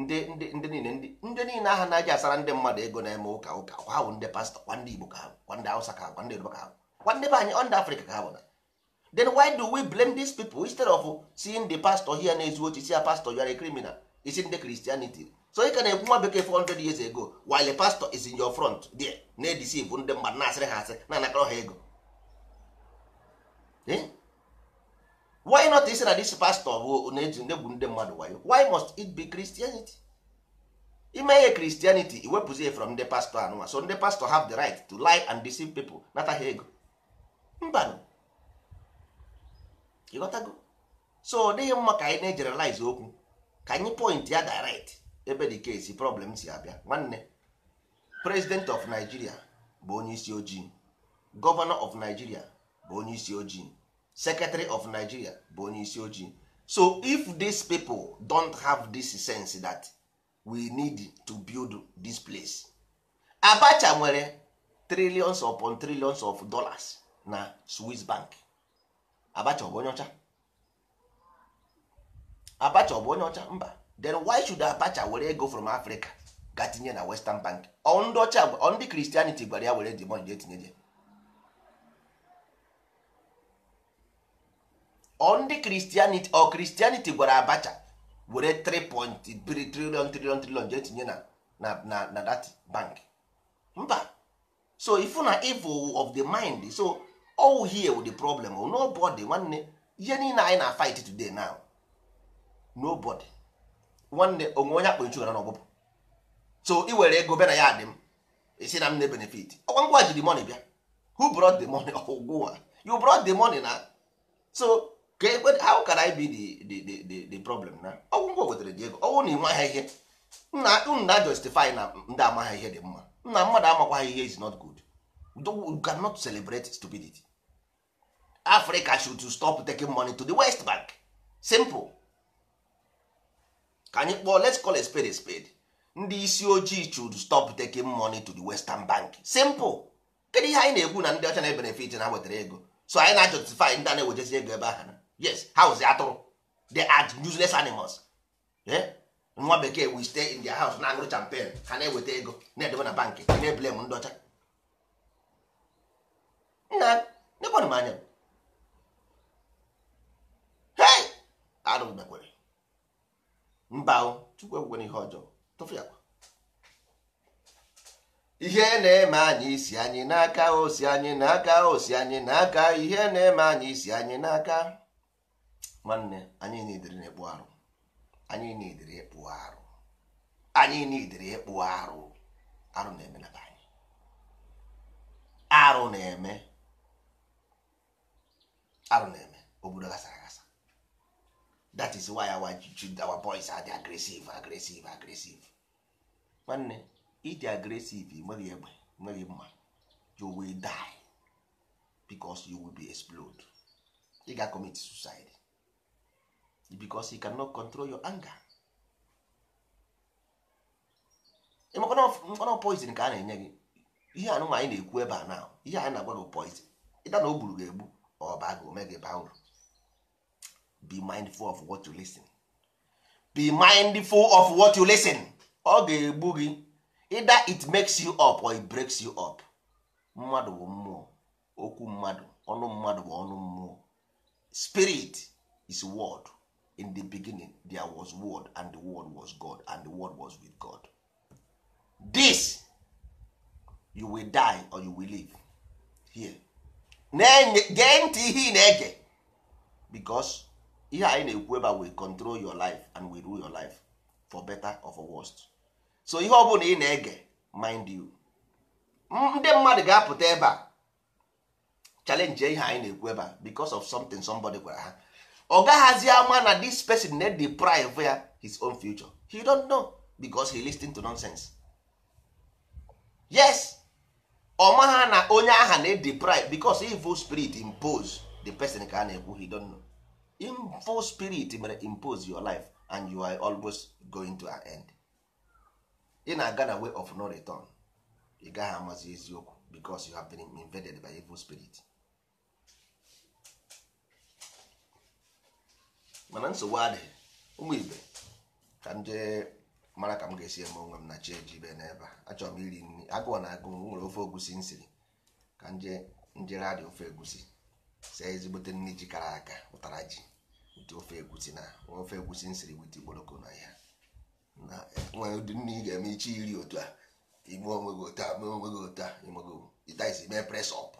ndị ndị ndị niile ndị ndị niile aha na-aja asara ndị mmadụ ego na-eme ụka ụka ha bụ ndị pastọ kwa ndị igbo ka ha kwa ndị hausa ka ha kwa ndị yoruba ka ha kwa ndị be anyị ndị afrịka ka ha bụ na then why do we blame these people instead of seeing the pastor here na-ezu ochi ya pastor you are a criminal is in the christianity so ị ka na-ekwu nwa bekee 400 years ago while a pastor is in your front there na-edisive ndị mmadụ na-asịrị ha asị na anakọrọ ha ego eh? why not isi na this pastor bụ na-eji ndegbu ndị mmadụ wayo why must it be christianity ime ihe christianity iwepụzie from ndị pastor anụnwa so ndị pastor have the right to lie and deceive people nata ha ego mbanụ ịghọtago so ọ dịghị mma ka anyị na-ejeralize okwu ka anyị point ya direct ebe case kesi problem si abịa nwanne president of Nigeria bụ onye isi ojii governor of Nigeria bụ onye isi ojii secretary of Nigeria bụ onye isi ojii so if these people don't have this sense that we need to build this place Abacha nwere trillions upon trillions of dollars na Swiss bank Abacha ọ bụ onye ọcha Abacha ọ bụ onye ọcha mba then why should Abacha were ego from Africa ga tinye na Western Bank ọ ndị ọcha ọ ndị Christianity gwara ya were demon jee tinye je ọ ndị Christianity ọ Christianity gwara Abacha were 3.3 point 3 trillion jee tinye na na na na that bank mba so ifu na evil of the mind so all oh, here with the problem oh, nobody nwanne ihe niile anyị na fight today now nobody nwanne oh, onwe onye akpọ nchugara n'ọgbụbụ so ị were ego bịa na ya adị m esi na m na benefit ọkwa oh, ngwa jiri money bịa who brought the money ọgwụwa you brought the money na so ka ekwe how can I be the the the the problem na ọgwụ ngwa wetara dị ego ọgwụ na ịma ha ihe nna unu na justify na ndị ama ha ihe dị mma nna mmadụ amakwa ha ihe is not good you cannot celebrate stupidity africa should stop taking money to the west bank simple ka anyị kpọọ let's call a spade a spade ndị isi ojii should stop taking money to the western bank simple kedu ihe anyị na-ekwu na ndị ọcha na-ebenefit na wetara ego so anyị na-justify ndị a na-ewejezi ego ebe ahụ yes house atụrụ they are useless animals eh? nwa bekee we stay in their house na agụrụ champagne ha na-eweta ego na-edebe na bank na-eblem ndị ọcha nna nekwanụ m arụ gbekwere mba chukwu ekwere ihe ọjọọ tụfịakwa ihe na-eme anyị isi anyị n'aka osi anyị n'aka osi anyị n'aka ihe na-eme anyị isi anyị n'aka nwanne anyị nidiri na-ekpu arụ anyị nidiri ekpu arụ anyị nidiri ekpu arụ arụ na-eme na anyị arụ na-eme arụ na-eme obodo gasara that is why our, our boys are the aggressive aggressive aggressive nwanne ịdị aggressive nweghị egbe nweghị mma you will die because you will be explode ị ga commit suicide because you cannot control your anger mkpọnọ poison ka a na-enye gị ihe anụnwa anyị na-ekwu ebe a na ihe anyị na-agwa gị poison ịda na o gburu gị egbu ọ baa gị ome gị baa uru be mindful of what you listen be mindful of what you listen ọ ga-egbu gị either it makes you up or it breaks you up mmadụ bụ mmụọ okwu mmadụ ọnụ mmadụ bụ ọnụ mmụọ spirit is word in the beginning there was word and the word was god and the word was with god this you will die or you will live here ne gee ntị ihe ị na-ege because ihe anyị na-ekwu ebe a we control your life and we rule your life for better or for worst so ihe ọ bụla ị na-ege mind you ndị mmadụ ga-apụta ebe a challenge ihe anyị na-ekwu ebe a because of something somebody gwara ha ọ gaghazi ama na this person na deprive ya his own future he don't know because he listen to nonsense yes ọ ha na onye aha na deprive because evil spirit impose the person ka a na-ekwu he don't know evil spirit mere impose your life and you are always going to end ị na-aga na way of no return ị gaghị amazi eziokwu because you have been invaded by evil spirit mana nsogbu adịghị ụmụ ibe ka ndị mara ka m ga-esi eme onwe m na chiji ejibe n'ebe a achọrọ m iri nri agụọ na agụ nwere ofe egusi nsiri ka nje njere adị ofe egusi see ezigbote nri ji kara aka ụtara ji ofe egwusi na ofe egwusi nsiri wit igboroko na ya na nwere ụdị nne ị ga-eme iche iri otu a ime onwe gị otu a mee onwe gị otu a imego ịtaisi mee presọp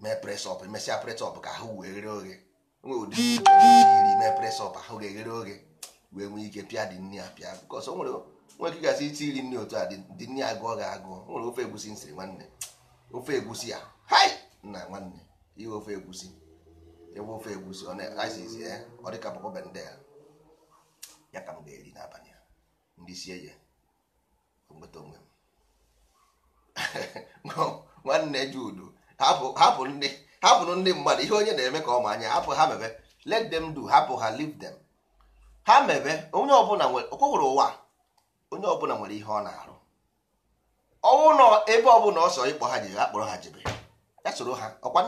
mee presọp emesịa pres-ọp ka ahụ wee ghere oghe nwere ụdị iri mee ọp ahụ ga-eghere oghe wee nwee ike pịa dị nne pịa bikọs nwere gasị iti iri nne otu a dị nne agụọ gị agụọ nwere ofe egwusi nsiri nwanne ofe egwusi ya hai nwanne ihe ofe egwusi egbufe egbusi ISIS eh? ọ dịka bụkọ a ya ka m ga-eri n'abalị a ndị sie ya nweta onwe m nwanne judu hapụrụ ndị mmadụ ihe onye na-eme ka ọ ma anya hapụ ha mebe let them do hapụ ha leave them ha mebe onye ọbụla nwere ọkwụrụ ụwa onye ọbụla nwere ihe ọ na-arụ ọnwụ nọ ebe ọbụla ọsọ ịkpọ ha jebe ha kpọrọ ha jebe ya soro ha ọkwa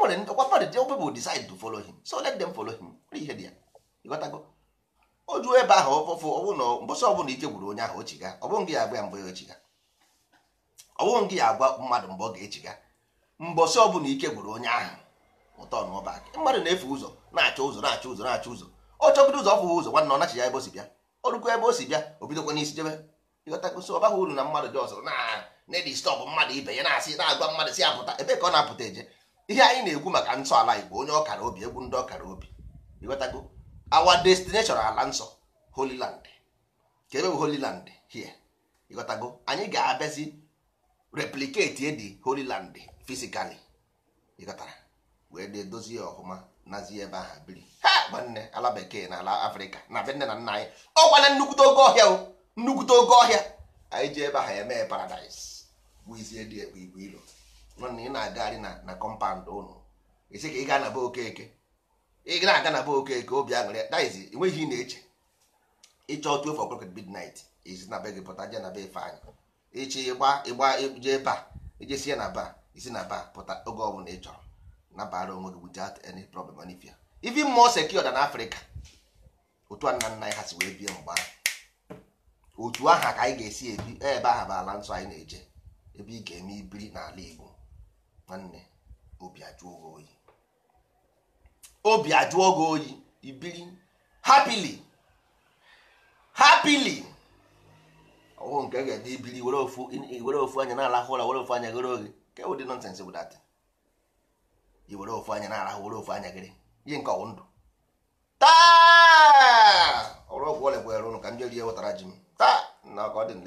o nwere ọkwa party people decide to follow him so let them follow him ihe dị ya ịghọtago o juo ebe ahụ ọfụfụ ọwụ na ọbụla ike gwuru onye ahụ ochiga ọ bụghị ya agba ya ochiga ọ ya agwa mmadụ mgbe ọ ga-echiga mbọsị ọbụla ike gwuru onye ahụ ụtọ n'ọba mmadụ na-efe ụzọ na-achọ ụzọ na-achọ ụzọ na-achọ ụzọ ọ chọbido ụzọ ọfụwa ụzọ nwanne ọ nachi ebe o si bịa ọ rukwa ebe o si bịa o bidokwa n'isi jebe ịghọtagosi ọ baghị uru na mmadụ dị ọzọ na-edistọbụ mmadụ ibe ya na-asị na-agwa mmadụ si apụta ebe ka ọ na-apụta eje ihe anyị na-ekwu maka ntọala igbo onye ọkara obi egwu ndị ọkara obi ịghọtago our destination ala nsọ holy land ka ebe bụ holy land here ịghọtago anyị ga-abịazi replicate edi holy land physically ịghọtara wee dozie ọhụma nazie ebe ahụ biri ha gbanne ala bekee na ala afrịka na be nne na nna anyị ọkwana nnukwute oge ọhịa o nnukwute oge ọhịa anyị ji ebe ahụ eme paradise wụzie dị egbe igwe ilo nọ na ị na-agagharị na na kọmpaụnd ụnụ isi ka ị gaa na be okeke ị na-aga na be okeke obi aṅụrị that is enweghị ị na-eche ịchọ two for bid midnight isi na be gị pụta jee na be ife anyị ịchị ịgba ịgba je ba ijesie na ba isi na ba pụta oge ọbụla ị chọrọ nabara onwe gị without any problem onifia even more secure than Africa otu a nna nna anyị ha si wee bie mgbe ahụ otu aha ka anyị ga-esi ebi ebe aha bụ ala nsọ anyị na-eje ebe ị ga-eme ibiri n'ala Igbo nwanne obi ajụọ gị oyi obi ajụọ gị oyi ibiri hapili hapili ọwụ nke ga-ede ibiri were ofu were ofu anya na-alahụ ụra were ofu anya gịrị oge ke ụdị nọnsensị bụ dat i were ofu anya na-alahụ were ofu anya gịrị ihe nke ọwụ ndụ taa ọrụ ọgwụ ọlịgbo ya ụnụ ka ndị rie wetara ji m taa na ọ dị m